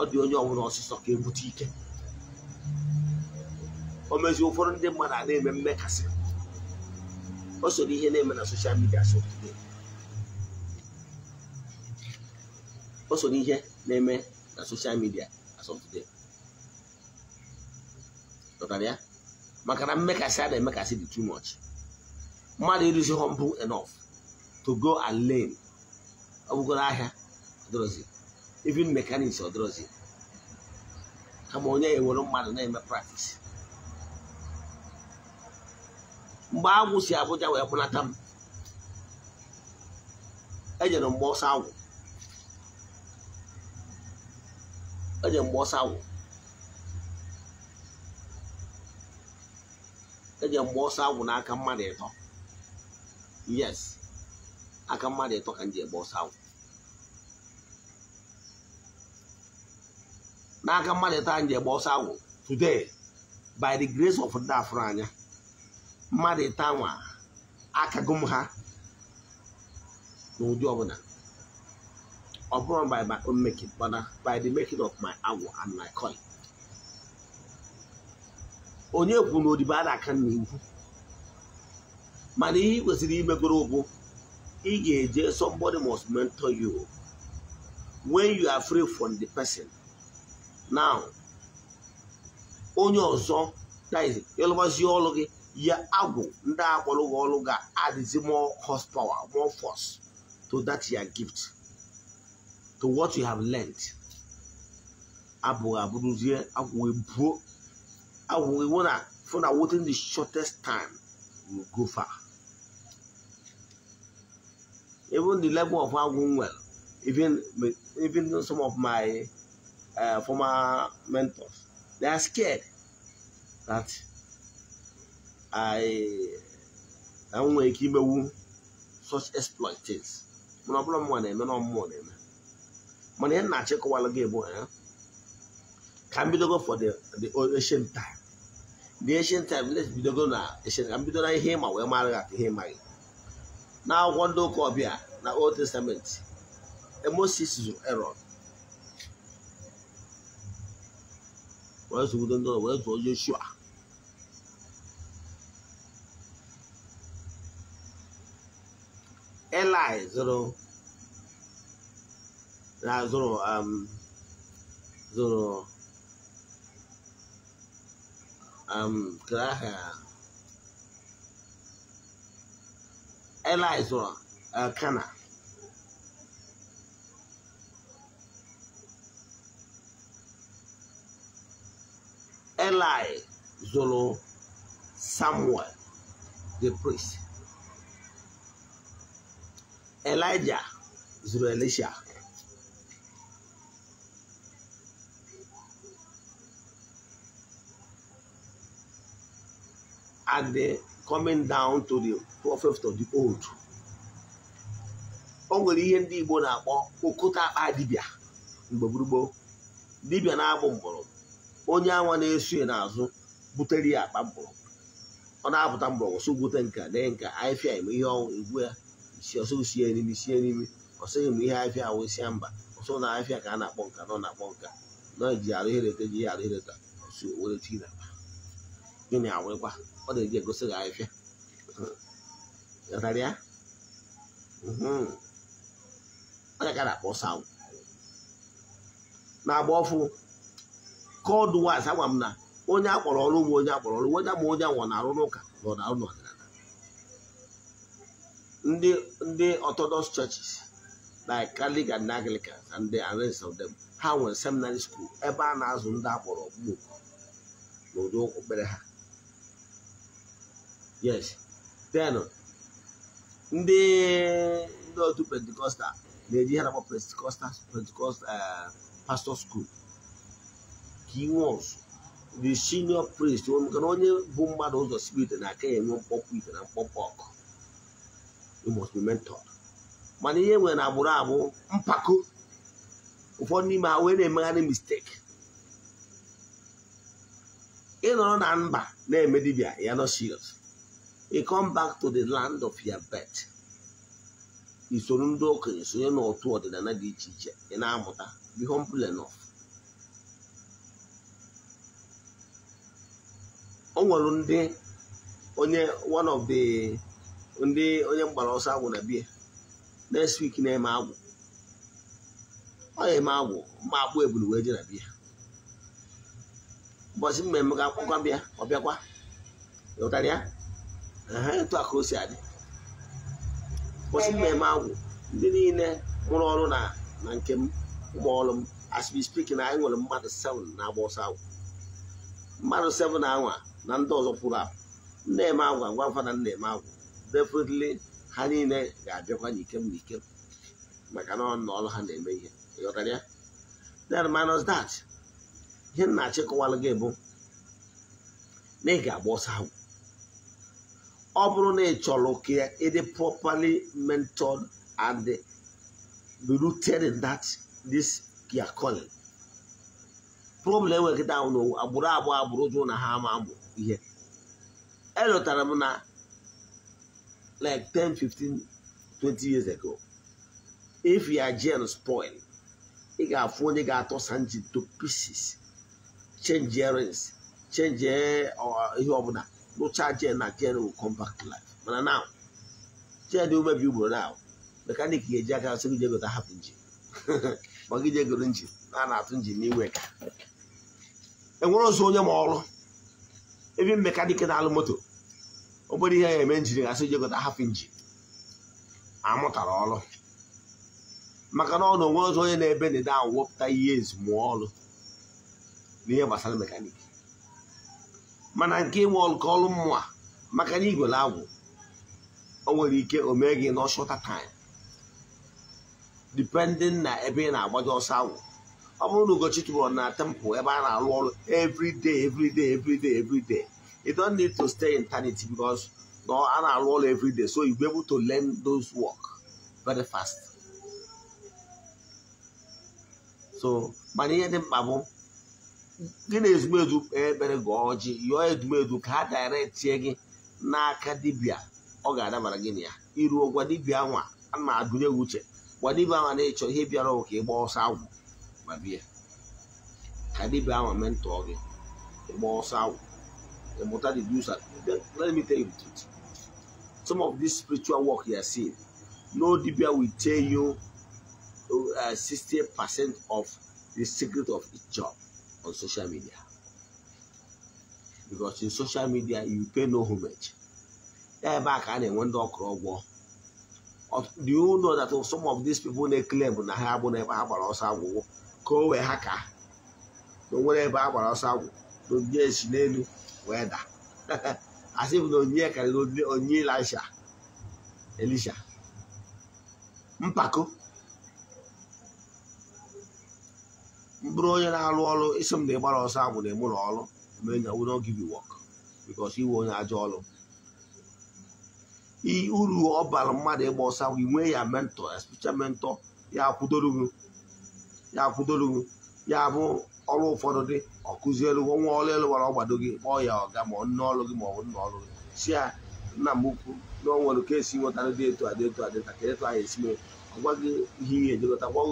ọ dị onye ọbụla ọsịsọ ka ebute ike o mezi ụfọdụ ndị mmadụ a na-eme mmekasị o soro ihe na-eme na soshal midia so o so n'ihe name eme na soshal as of today pụtara ya maka na mmekasị a make a dị too much mmadụ ịrụzi humble enough to go and learn ọ bụgoro here? ọdịrọzi even mechanics ọdịrọzi kama onye ewere mmadụ na-eme practice mgbe agwụ Abuja wee kpụnata m ejere mgbe ọsọ onye mgbe ọsọ awụ eji mgbe ọsọ awụ n'aka mmadụ ịtọ yes aka mmadụ ịtọ ka m ji egbe ọsọ awụ n'aka mmadụ ịtọ anyị ji egbe ọsọ awụ today by the grace of ndị afụrụ anya mmadụ ịta nwa aka gụm ha n'ụdị ọbụla upon by my own making, but by the making of my hour and my coin. onye kwuru na odibo a na-aka n'iwu mana ihe ị kwesịrị imegoro bụ ị ga-eje somebody must mentor you when you are free from the person now onye ọzọ ịlụbazi ọlụ gị ya agwụ ndị akpọrọ gị ọlụ ga-adịzi more horsepower more force to that your gift to what you have learned. Abu Abuduzie, Abu Bro, Abu Iwana, for that within the shortest time, you go far. Even the level of how well, even even some of my uh, former mentors, they are scared that I I am making such exploit things. Muna not mwana, muna mwana. mana na nna chịkọwala gị bụ ya ka m bidogo for the ancient time the ancient time let's bidogo na ancient ka m na ihe ịma wee mara gị aka ihe ịmaghị na akwụkwọ ndị ụka ọbịa na old testament Moses zụrụ Aaron wee zụgodo ndị wee zụọ Joshua Eli zụrụ na zoro um zoro um kraha ela zoro uh, kana Eli Zolo Samuel, the priest. Elijah Zoro Elisha. and the coming down to the prophet of the old o nwere ihe ndị Igbo na-akpọ okota akpa dibịa mgbe gburugburu dibia na-abụ mgbọrọgwụ onye anwa na-eso n'azụ butere ya akpa mgbọrọgwụ ọ na-apụta mgbọrọgwụ so bute nka dee nka ahịfịa eme ihe ọnwụ egwu ya isi ọsọ sie n'imi sie n'imi ọsọ eme ihe ahịfịa ahụ isia mba ọsọ na ahịfịa ka a na-akpọ nka nọ na-akpọ nka nọ ji arụ hereta ji ya arụ hereta ọsọ were chi na gịnị awụrịkwa ọ na-eji egosi gị ahịfịa ghara ya onye ka na-akpọ ọsọ agwụ na-agba ọfụ kọdụ waz agwa m na onye akpọrọ ọrụ bụ onye akpọrọ ọrụ onye ma onye anwụ na-arụ n'ụka na ọ na n'ọdịnala ndị ndị Orthodox churches like Catholic and Anglicans and the rest of them ha nwere seminary school ebe a na-azụ ndị akpọrọ okpukpe n'ụdị okpukpere ha yes then ndị ndị otu pentikọstal na-eji ihe na-akpọ pentikọstal pentikọstal eh, pastor school ka inwe ọzọ the senior priest maka onye bụ mmadụ ụzọ spirit na aka ya enwe mkpọpụ ite na mkpọpụ ọkụ must be mentored mana ihe nwere na agbụrụ agbụ mpako ụfọdụ n'ime ha wee na-emegharị mistake ịnọrọ na mba na-eme dibịa ya nọ serious ị come back to the land of your birth isoro ndị okenye sonye n'otu ọdịnala dị iche iche ị na-amụta be humble enough o nwere ndị onye one of the ndị onye mgbara ọsọ agwụ na bie next week na-eme agwụ ọ ya eme agwụ ma akpụ ebulu wee je na bia ụbọchị mmemme ga akpọkwa bịa ọ bịakwa ịghọtara ya ha etu a ka o kwụsị adị kwụsị mmemme agwụ ndị niile mụrụ ọrụ na na nke m ụmụ ọrụ m as we speak na anyị nwere mmadụ 7 na-agba ọsọ agwụ mmadụ 7 na anwa na ndị ọzọ pụrụ apụ na-eme agwa ngwa mfa na na-eme agwụ definitely ha niile ga-abịakwa n'ikem n'ikem maka na ọ na ọrụ ha na-eme ihe ịghọtara ya then minus that ihe m na-achịkọwalụ gị bụ na ị ga-agba ọsọ agwụ ọ bụrụ na ị chọrọ ka ịdị properly mentored and rooted in that this your calling problem enwere kịta ahụ n'owu agbụrụ abụọ agbụrụ jụụ na ha ama amụ ihe elotara m na like 10 15 20 years ago if your gen spoil ị ga-afụ onye ga-atọsa nji to pieces change earrings change eh, ihe ọbụla no charge and Nigeria will come back to life. But now, share the overview, bro. Now, mechanic here, Jack, I'll see you that happened. Magija Gurunji, Nana Tunji, New York. And we're also on your mall. Even mechanic and Alamoto. Nobody here mentioning, I said you got a half inch. I'm not at all. maka na ọ na onwe ọzọ onye na-ebe ndịda ahụ wepụta ihe ezumọlụ n'ihe gbasara mekaniki mana nke nwe nke ọrụ mmụọ maka na igwere agwụ o nwere ike o mee gị n'ọshọta time depending na ebe ị na-agbaji ọsọ agwụ ọ bụrụ na Ugochi na temple ebe a na-arụ ọrụ everyday everyday everyday everyday you don't need to stay in eternity because a na-arụ ọrụ everyday so you be able to learn those work very fast so mana ihe dị mkpa bụ gị na ezumedu kpee ekpere gị ọjị yọọ edumedu ka ha dairetie gị n'aka dibịa ọ ga-adabara gị na ya iruo gwa dibịa nwa a na-agụnye gị uche gwa dibịa nwa na-echọ ihe bịara ka ịgba ọsọ agwụ ma bịa ka dibịa nwa mentọọ gị ịgba ọsọ agwụ ịmụta the do's and let me tell some of this spiritual work you are seeing no dibịa will tell you uh, 60 percent of the secret of his job on social media because in social media you pay no homage ya ebe a ka a na-enwe ndị ọkụrụ ụgwọ the you know that some of these people na bụ na ha abụ na ebe ha gbara ọsọ agwụgwọ ka o wee ha ka na onwere ebe ha gbara ọsọ agwụ n'onye onyinye esi n'elu wee da asị bụ na onyinye karịrị onyinye elisha elisha mpako mbụrụ onye na-arụ ọrụ isi m na ịgbara ọsọ agwụ na ịmụrụ ọrụ mee na will not give iwe onye ajọ ọrụ uru ọ bara mmadụ ịgba ọsọ agwụ inwe ya mentọ especially mentọ ya akwụdoro ya akwụdoro ya bụ ọrụ ụfọdụ dị ọkụzielu nwa ọrụ elu gbara ọgbado gị kpọọ ya ọga ma nne ọrụ gị ma ọ bụ nna gị si ya nna m ukwu na o nwere ka esi nweta dị etu adị etu adị ka ịtụ anyị esi mee. gwa gị ihe ihe ejikọta gwa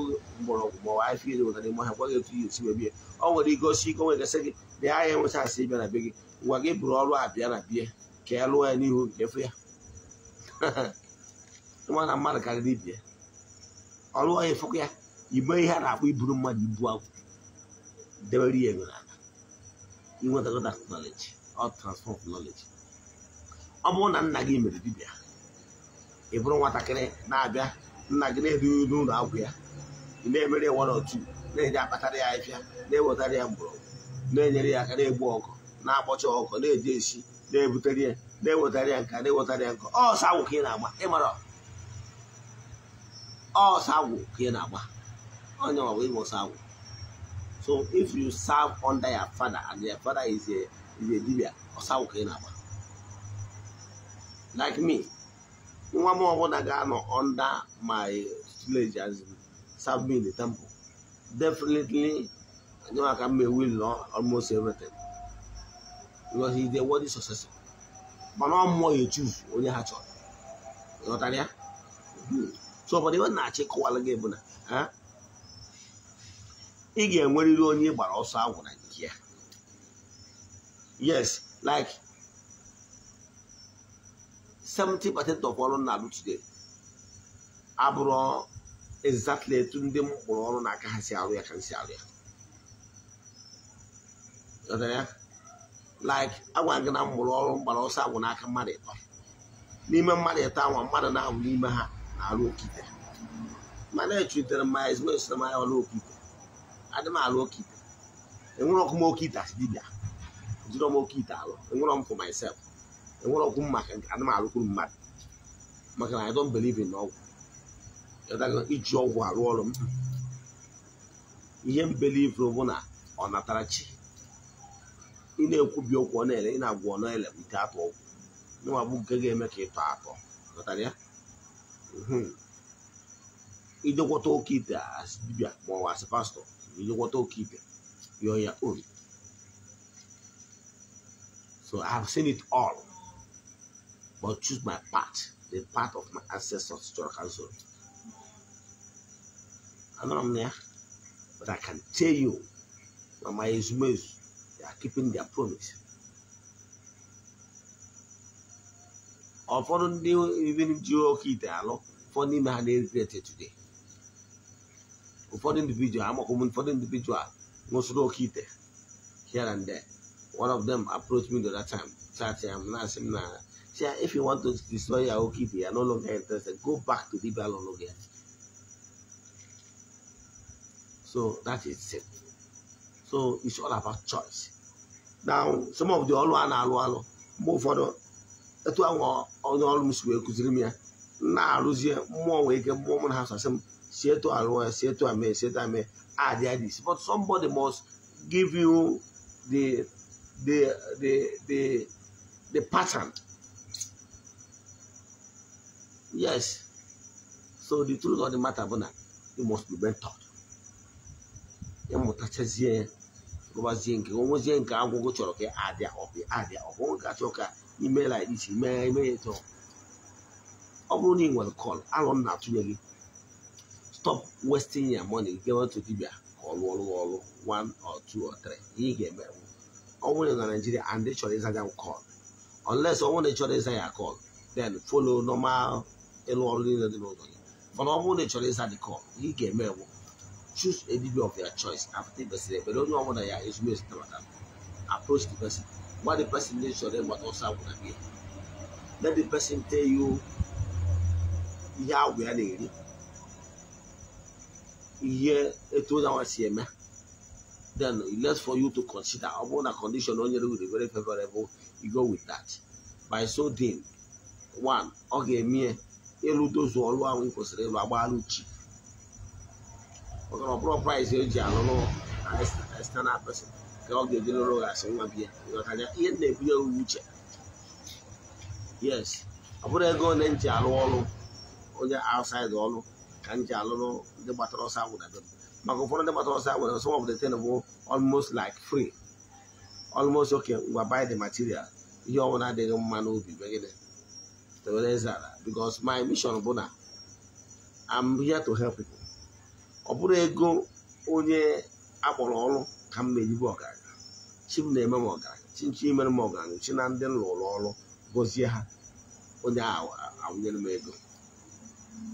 mgbọrọgwụ ma ọ afọ ejikọta n'ime ọhịa gwa gị etu ihe esi wee ọ nwere igosi ike nwere gasị gị na ya ya enwecha asị bịa na be gị gwa gị bụrụ ọrụ a bịa na bie ka ya lụọ ya n'ihu nke efu ya nwa na mmadụ karịrị ibie ya ọ lụọ ya efekwa ya igbe ihe a na-akpọ iburu mmadụ ibu agwụ debere ya ego n'aka inwetakọta knọleji ọ transfọm knọleji ọ bụrụ na nna gị mere dibịa ị bụrụ nwatakịrị na-abịa nna gị na-edughị ụlọ agwụ ya ị na-emere ya nwara otu na enye akpatara ya ahịfịa na-ewetara ya mgbọrọgwụ na-enyere ya aka na-egbu ọkụ na-akpọcha ọkụ na-eji esi na-ebutere ya na-ewetara ya nka na-ewetara ya nka ọsọ agwụ ka ị na-agba ịmara ọsọ agwụ ka ị na-agba onye ọgwụ ịgba ọsọ agwụ so if you serve under your father and your father is a is a dibia ọsọ agwụ ka ị na-agba like me nwa m ọbụla ga-anọ under my tutelage as serve me in the temple definitely nyewaka mma will know almost everything because he dey worthy successor mana ọ mmụọ ya choose onye ha chọrọ ghọtara ya hmm. so obodo iwe na-achị kọwara gị bụ na ị ga-enwerịrị onye ị gbara ọsọ agwụ na nke ya yes like seventy percent of ọrụ na-alụ abụrụ exactly etu ndị m kpụrụ ọrụ n'aka ha si arụ ya ka m si arụ ya like agwa gị na m mụrụ ọrụ mgbara ọsọ agwụ n'aka mmadụ ịtọ n'ime mmadụ ịtọ anwa mmadụ na-ahụ n'ime ha na-arụ okite mana echutere m ya ezigbo esoro m ya ọrụ okite adị m alụ okite enwere ọkụ m okite asị dibịa jiri m okite alụ enwere m for myself enwere ọgwụ maka ana m arụkwuru mmadụ maka na I don't believe in ọgwụ iji ọgwụ arụ ọrụ m ihe m believe bụ na ọ natara chi ị na-ekwubi okwu ọ na-ele ị na-agwa ọ na-ele nke atọ ọgwụ nwa bụ nke ga not ka ịtọ atọ natara ya ijekwọta oke ite asị dibịa ma ọ wa asị pastọ ijekwọta oke ite yọọ ya obi so I have seen it all but choose my path, the path of my ancestors to cancel. I'm not there, but I can tell you, my Ismails, they are keeping their promise. Ụfọdụ ndị even ji oke ite alụ ụfọdụ n'ime ha na-egrete today. Ụfọdụ individual amakwụ for ụfọdụ individual most oke ite here and there. One of them approached me the other time, chat "I'm not, asi See, if you want to destroy your Aokibi, you are no longer interested. Go back to Dibala again. So that is it. So it's all about choice. Now, some of the all a na-alụ alụ mgbe ụfọdụ etu ahụ onye ọrụ m si wee kụziri m ya na-arụzie mmụọ nwee ike mmụọ m na ha sasị m si etu alụọ ya si but somebody must give you the the the the the pattern yes so the truth of the matter bụ na you must be mentored ịmụtachazie gụbazie nke onwezie nke agwụgwụ chọrọ ka adịa ọbị adịa ọbụghị ka chọọ ka imela iche mee eme ya chọọ ọ bụrụ na ị nwere kọl alụ m na-atụnye gị stop wasting your money gawa to dibia ka ọ lụọ lụọ ọrụ one or 2 or 3 ihe ị ga-eme ọ nwere na Naijiria and they chọrọ ịza ya kọl unless ọ nwere chọrọ ịza ya kọl then follow normal ịrụ ọrụ niile dị n'ụlọ gị mana ọ bụrụ na ị chọrọ ịza dị kọl ị ga-eme ewu choose a dibia of your choice after the person ekpere onye ọbụla ya ezumezu tabata approach the person gwa the person ndị chọrọ ịgbata ọsọ agwụna gị let the person tell you ihe agwụ ya na-eri ihe etu onye anwa si eme then it for you to consider ọ bụrụ na condition onye rewere very favorable you go with that by so doing one ọ ga-eme Yes, I ahụ kwesịrị ịlụ agbaalụ chi maka na ọbụrụ praịs external person ka o nwa na uche yes ego nji alụ onye outside ọrụ ka m ji of the thing bụ almost like free almost okay We buy the material ihe ọbụla adịghị man n'obi megide because my mission bụ na I'm here to help people ọ bụrụ ego onye akpọrọ ọrụ ka m na ọgaranya chi m na-eme m ọgaranya chi nchi ma m ọgaranya chi na ndị nlụrụ ọrụ gọzie ha onye awụnyere m ego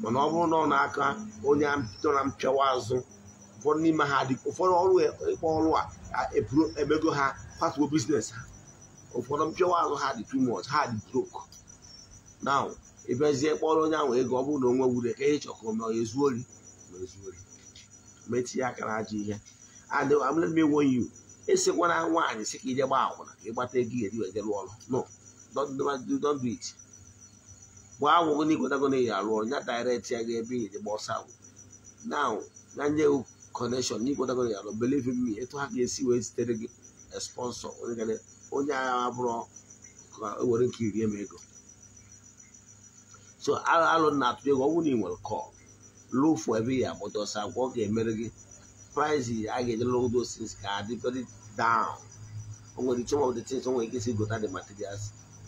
mana ọ bụrụ na ọ na-aka onye nọ na mpịawa azụ ụfọdụ n'ime ha dị ụfọdụ ọrụ e, ịkpọ ọrụ a ha patuo biznes ha ụfọdụ azụ ha dị too na ịbịazie kpọrọ onye ahụ ego ọ bụrụ na onwe wure ka ịchọ ka ma ezu ori ma ori metinye aka na ajọ ihe and I'm um, let me esikwana nwaanyị si ka ije gba akwụna ka ịgbata ego eri wee jere ọrụ no it gbaa agwụgo na ikwetago na ya arụ ọrụ ya direct ya ga ebe ije gba ọsọ agwụ now na nye connection na ikwetago na ya arụ believe me etu ha ga-esi wee zitere gị sponsor onye agha abụrụ ka o were nke irie m ego so alụ na-atụ ego ọ na ị nwere kọl lụfụ ebe ya bụdosa gwa ọ ga-emere gị price a ga-ejelụ those things ka adị very down o nwere some ọ the things nwere ike isi gota dị materials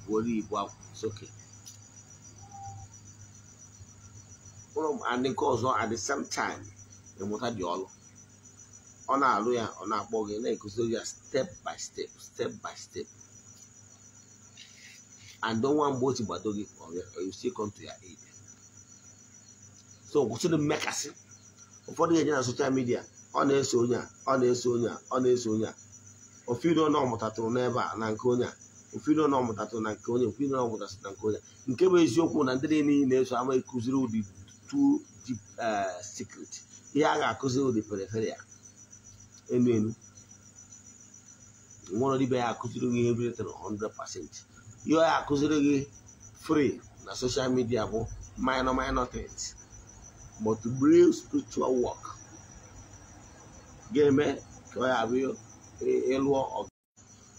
were ibu soke ụlọ adị nke ọzọ at the same time ịmụta dị ọlụ ọ na-alụ ya ọ na-akpọ gị na-ekụziri ya step by step step by step and don't want si gbado gị or you still come to your aid so mmekasị ụfọdụ ga-eje na soshal midia ọ na-eso onye a ọ na-eso onye a ọ na-eso onye a ofiro na ọmụtatụrụ n'ebe a na nke onye a ofiro na ọmụtatụrụ na nke onye ofiro na ọmụtatụrụ na nke onye nke bụ eziokwu na ndị niile na-eso ama ekụziri ụdị two deep secret ihe a ga-akụziri ụdị periferia enu enu nwụrụ dibia ya akụziri gị ihe biletara 100 pasenti ihe ya akụziri gị free na soshal midia bụ minor minor things but real spiritual work ga-eme ka ọ ya bụ ịlụọ ọgụ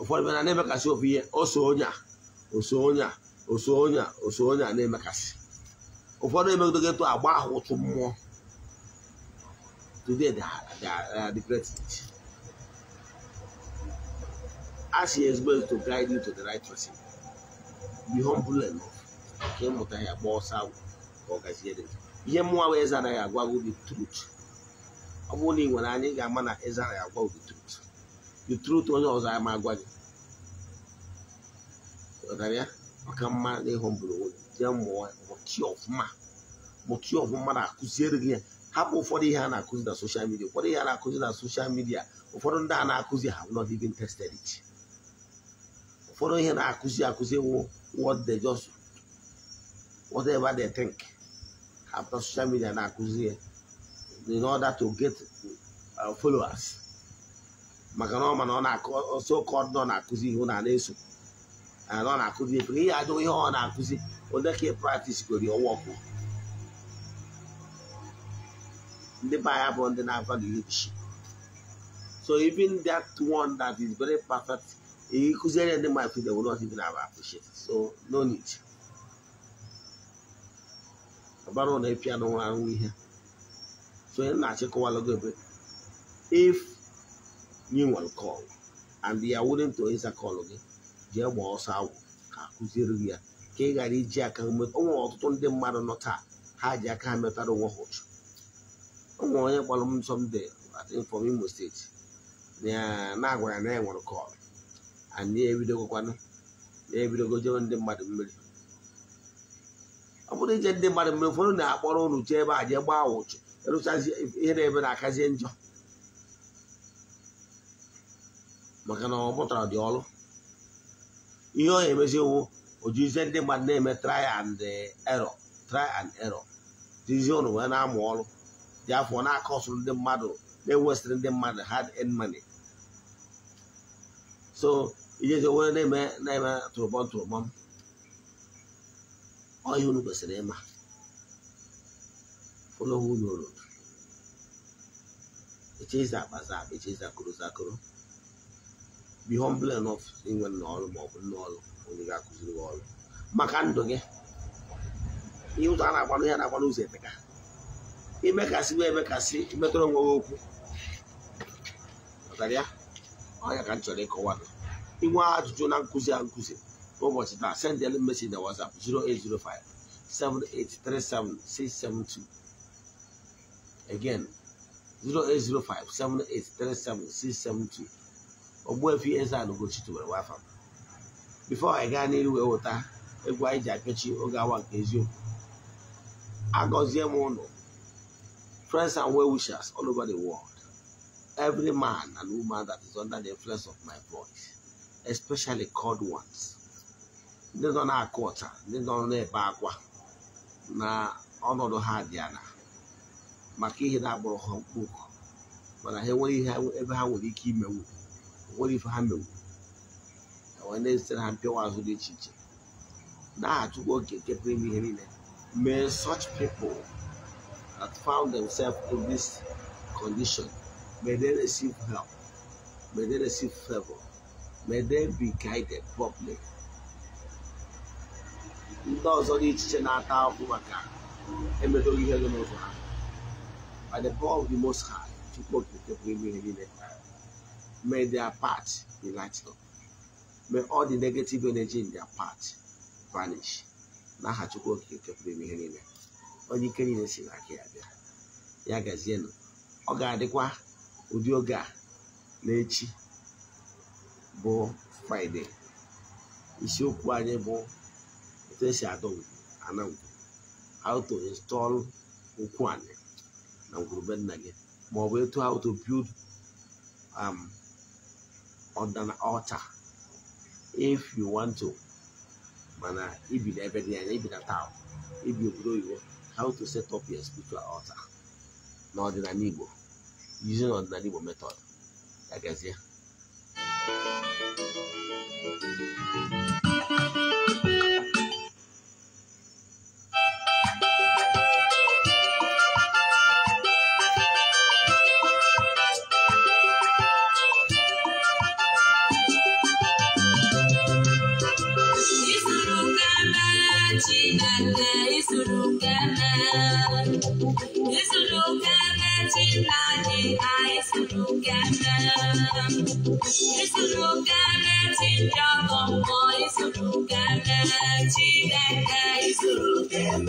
ụfọdụ bịa na na-emekasị ofu ihe oso onye a oso onye a oso onye a oso onye a na-emekasị ụfọdụ gị etu agba ahụ ụtụ mmụọ today they are, the greatest. Ask your husband to guide you to the right person. ihe be humble enough ka ịmụta ya gba ọsọ agwụ ka ọ gazie dị ihe mụnwa wee zara ya agwa gị the truth ọ bụrụ na ị nwere anyị ga-ama na ịzara ya agwa the truth dị truth onye ọzọ ama agwa gị ghọtara ya maka mma na ịhụmbụrụ jee mụọ mụtie ọfụma mụtie ọfụma na-akụziere gị ya hapụ ụfọdụ ihe a na-akụzi na soshal midia ụfọdụ ihe a na-akụzi na soshal midia ụfọdụ ndị a na-akụzi ha nọ even tested it ụfọdụ ihe na-akụzi akụzi ewu what they just whatever they think after social media na-akụzi in order to get uh, followers maka na ọma called ọ na-akụso kod nọ na-akụzi ihu na na-eso na ọ na-akụzi efe ihe ajụ ihe o na-akụzi onye ka practice gori ọwọkụ ndị be anyị bụ ndị na-ava so even that one that is very perfect he considered them my friends, they would not even have appreciated. So, no need. About on the piano, and we here. So, in that, a while ago, if you will call and they are willing to answer call again, they will also have a consideration. ka ị ghara iji aka o nwere ọtụtụ ndị mmadụ nọ taa ha ji aka ha metara onwe ha ụchụ o nwere onye kpọrọ m sọmde from Imo steeti na agwara na ya nwere kọlụ anyị ebidogokwanụ na-ebidogo jewe ndị mmadụ mmiri ọ bụrụ ije ndị mmadụ mmiri ụfọdụ na-akpọrọ unu jee ebe a jee gbaa ụchụ ịrụchazi ihe na-ebe na-akazie njọ maka na ọ mụtara dị ọrụ ihe ọ na-emezi ojizie ndị mmadụ na-eme try and uh, error try and error dizie ụnụ wee na-amụ ọrụ dị afọ na-akọsụrụ ndị mmadụ na-ewesịrị ndị mmadụ hard earned money so ijezi onwere na-eme na-eme tụrụbọm ọ unu kwesịrị ịma ụlọwụ unu rụrụ echezi akpaza akpa echezi akụrụ zakụrụ bi humble enough inwe nna ọrụ maọbụ ọrụ onye ga-akụziri gị ọrụ maka ndụ gị ihe ụzọ a na-agbanụ ya na-agbanụ ụzọ eteka imekasị wee emekasị metụrụ onwe gị okwu ọnya ka m chọrọ ịkọwa gị inwe ajụjụ Kuzi and Kuzi? nkụzi was taa send the message na WhatsApp 0805 7837672 again 0805 7837 Ogbuefi Eze-Ana Ugochi tubelu nwa afọ before anyị gaa n'iru wee I egwu anyị the apịachi I got nke eziokwu friends and well wishers all over the world every man and woman that is under the influence of my voice especially cold ones ndị nọ na-akụ ọcha ndị nọ na-ebe akwa na ọnọdụ the dị ala maka ihe na But I mkpụrụ what ha enwere ihe ebe ha nwere ike imewu nwere ife ha mewu wee na-ezitere ha mpịawa azụ dị iche iche na-achụkwa oke nke pụrụ ime ihe niile may such people that found themselves in this condition may they receive help may they receive favor may they be guided properly ndị ọzọ dị ichiche na-ata ahụhụ maka emedoghị ihe gị n'ụzọ ha by the power of the most high chukwu okike pụrụ ime ihe niile may their part be lighted up may all the negative energy in their path vanish n'aha chukwu okike pụrụ ime ihe niile onye ike niile si n'aka ya bịa ya gazienụ ọ ga-adịkwa ụdị oge a n'echi bụ fraịde isiokwu anyị bụ etu esi adọ ana ngwuru how to install ụkwụ anyị na ngwurube nna gị ma etu how to build um, ọdana altar if you want to mana ibi na ebe dị anya ibi na town ibi obodo oyibo how to set up your spiritual altar n'ọdịnala Igbo using ọdịnala Igbo method agazie Chineke isuru keme, isuru keme Chineke anyị Es un lugar chida como es un lugar chida es un lugar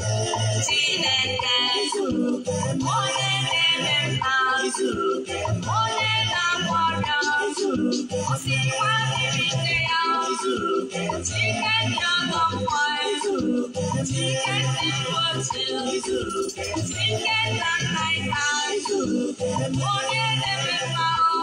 chida es un lugar mole de verdad es un lugar mole de amor es un lugar o si cuando me creo es un lugar chida yo no puedo es un lugar chida te puedo es un lugar chida tan tan es un lugar mole de verdad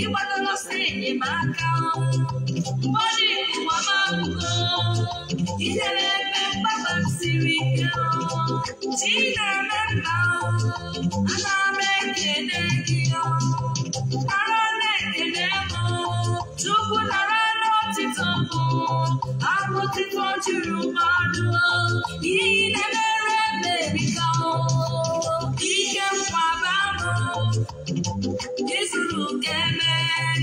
ịgbadoro si enyemaka mmadụ iwama ụlọ inyere ebe mgbaba siri ike chi na-eme ana m ekele gị ara na-ekele m chukwu nara n'ọtịtọ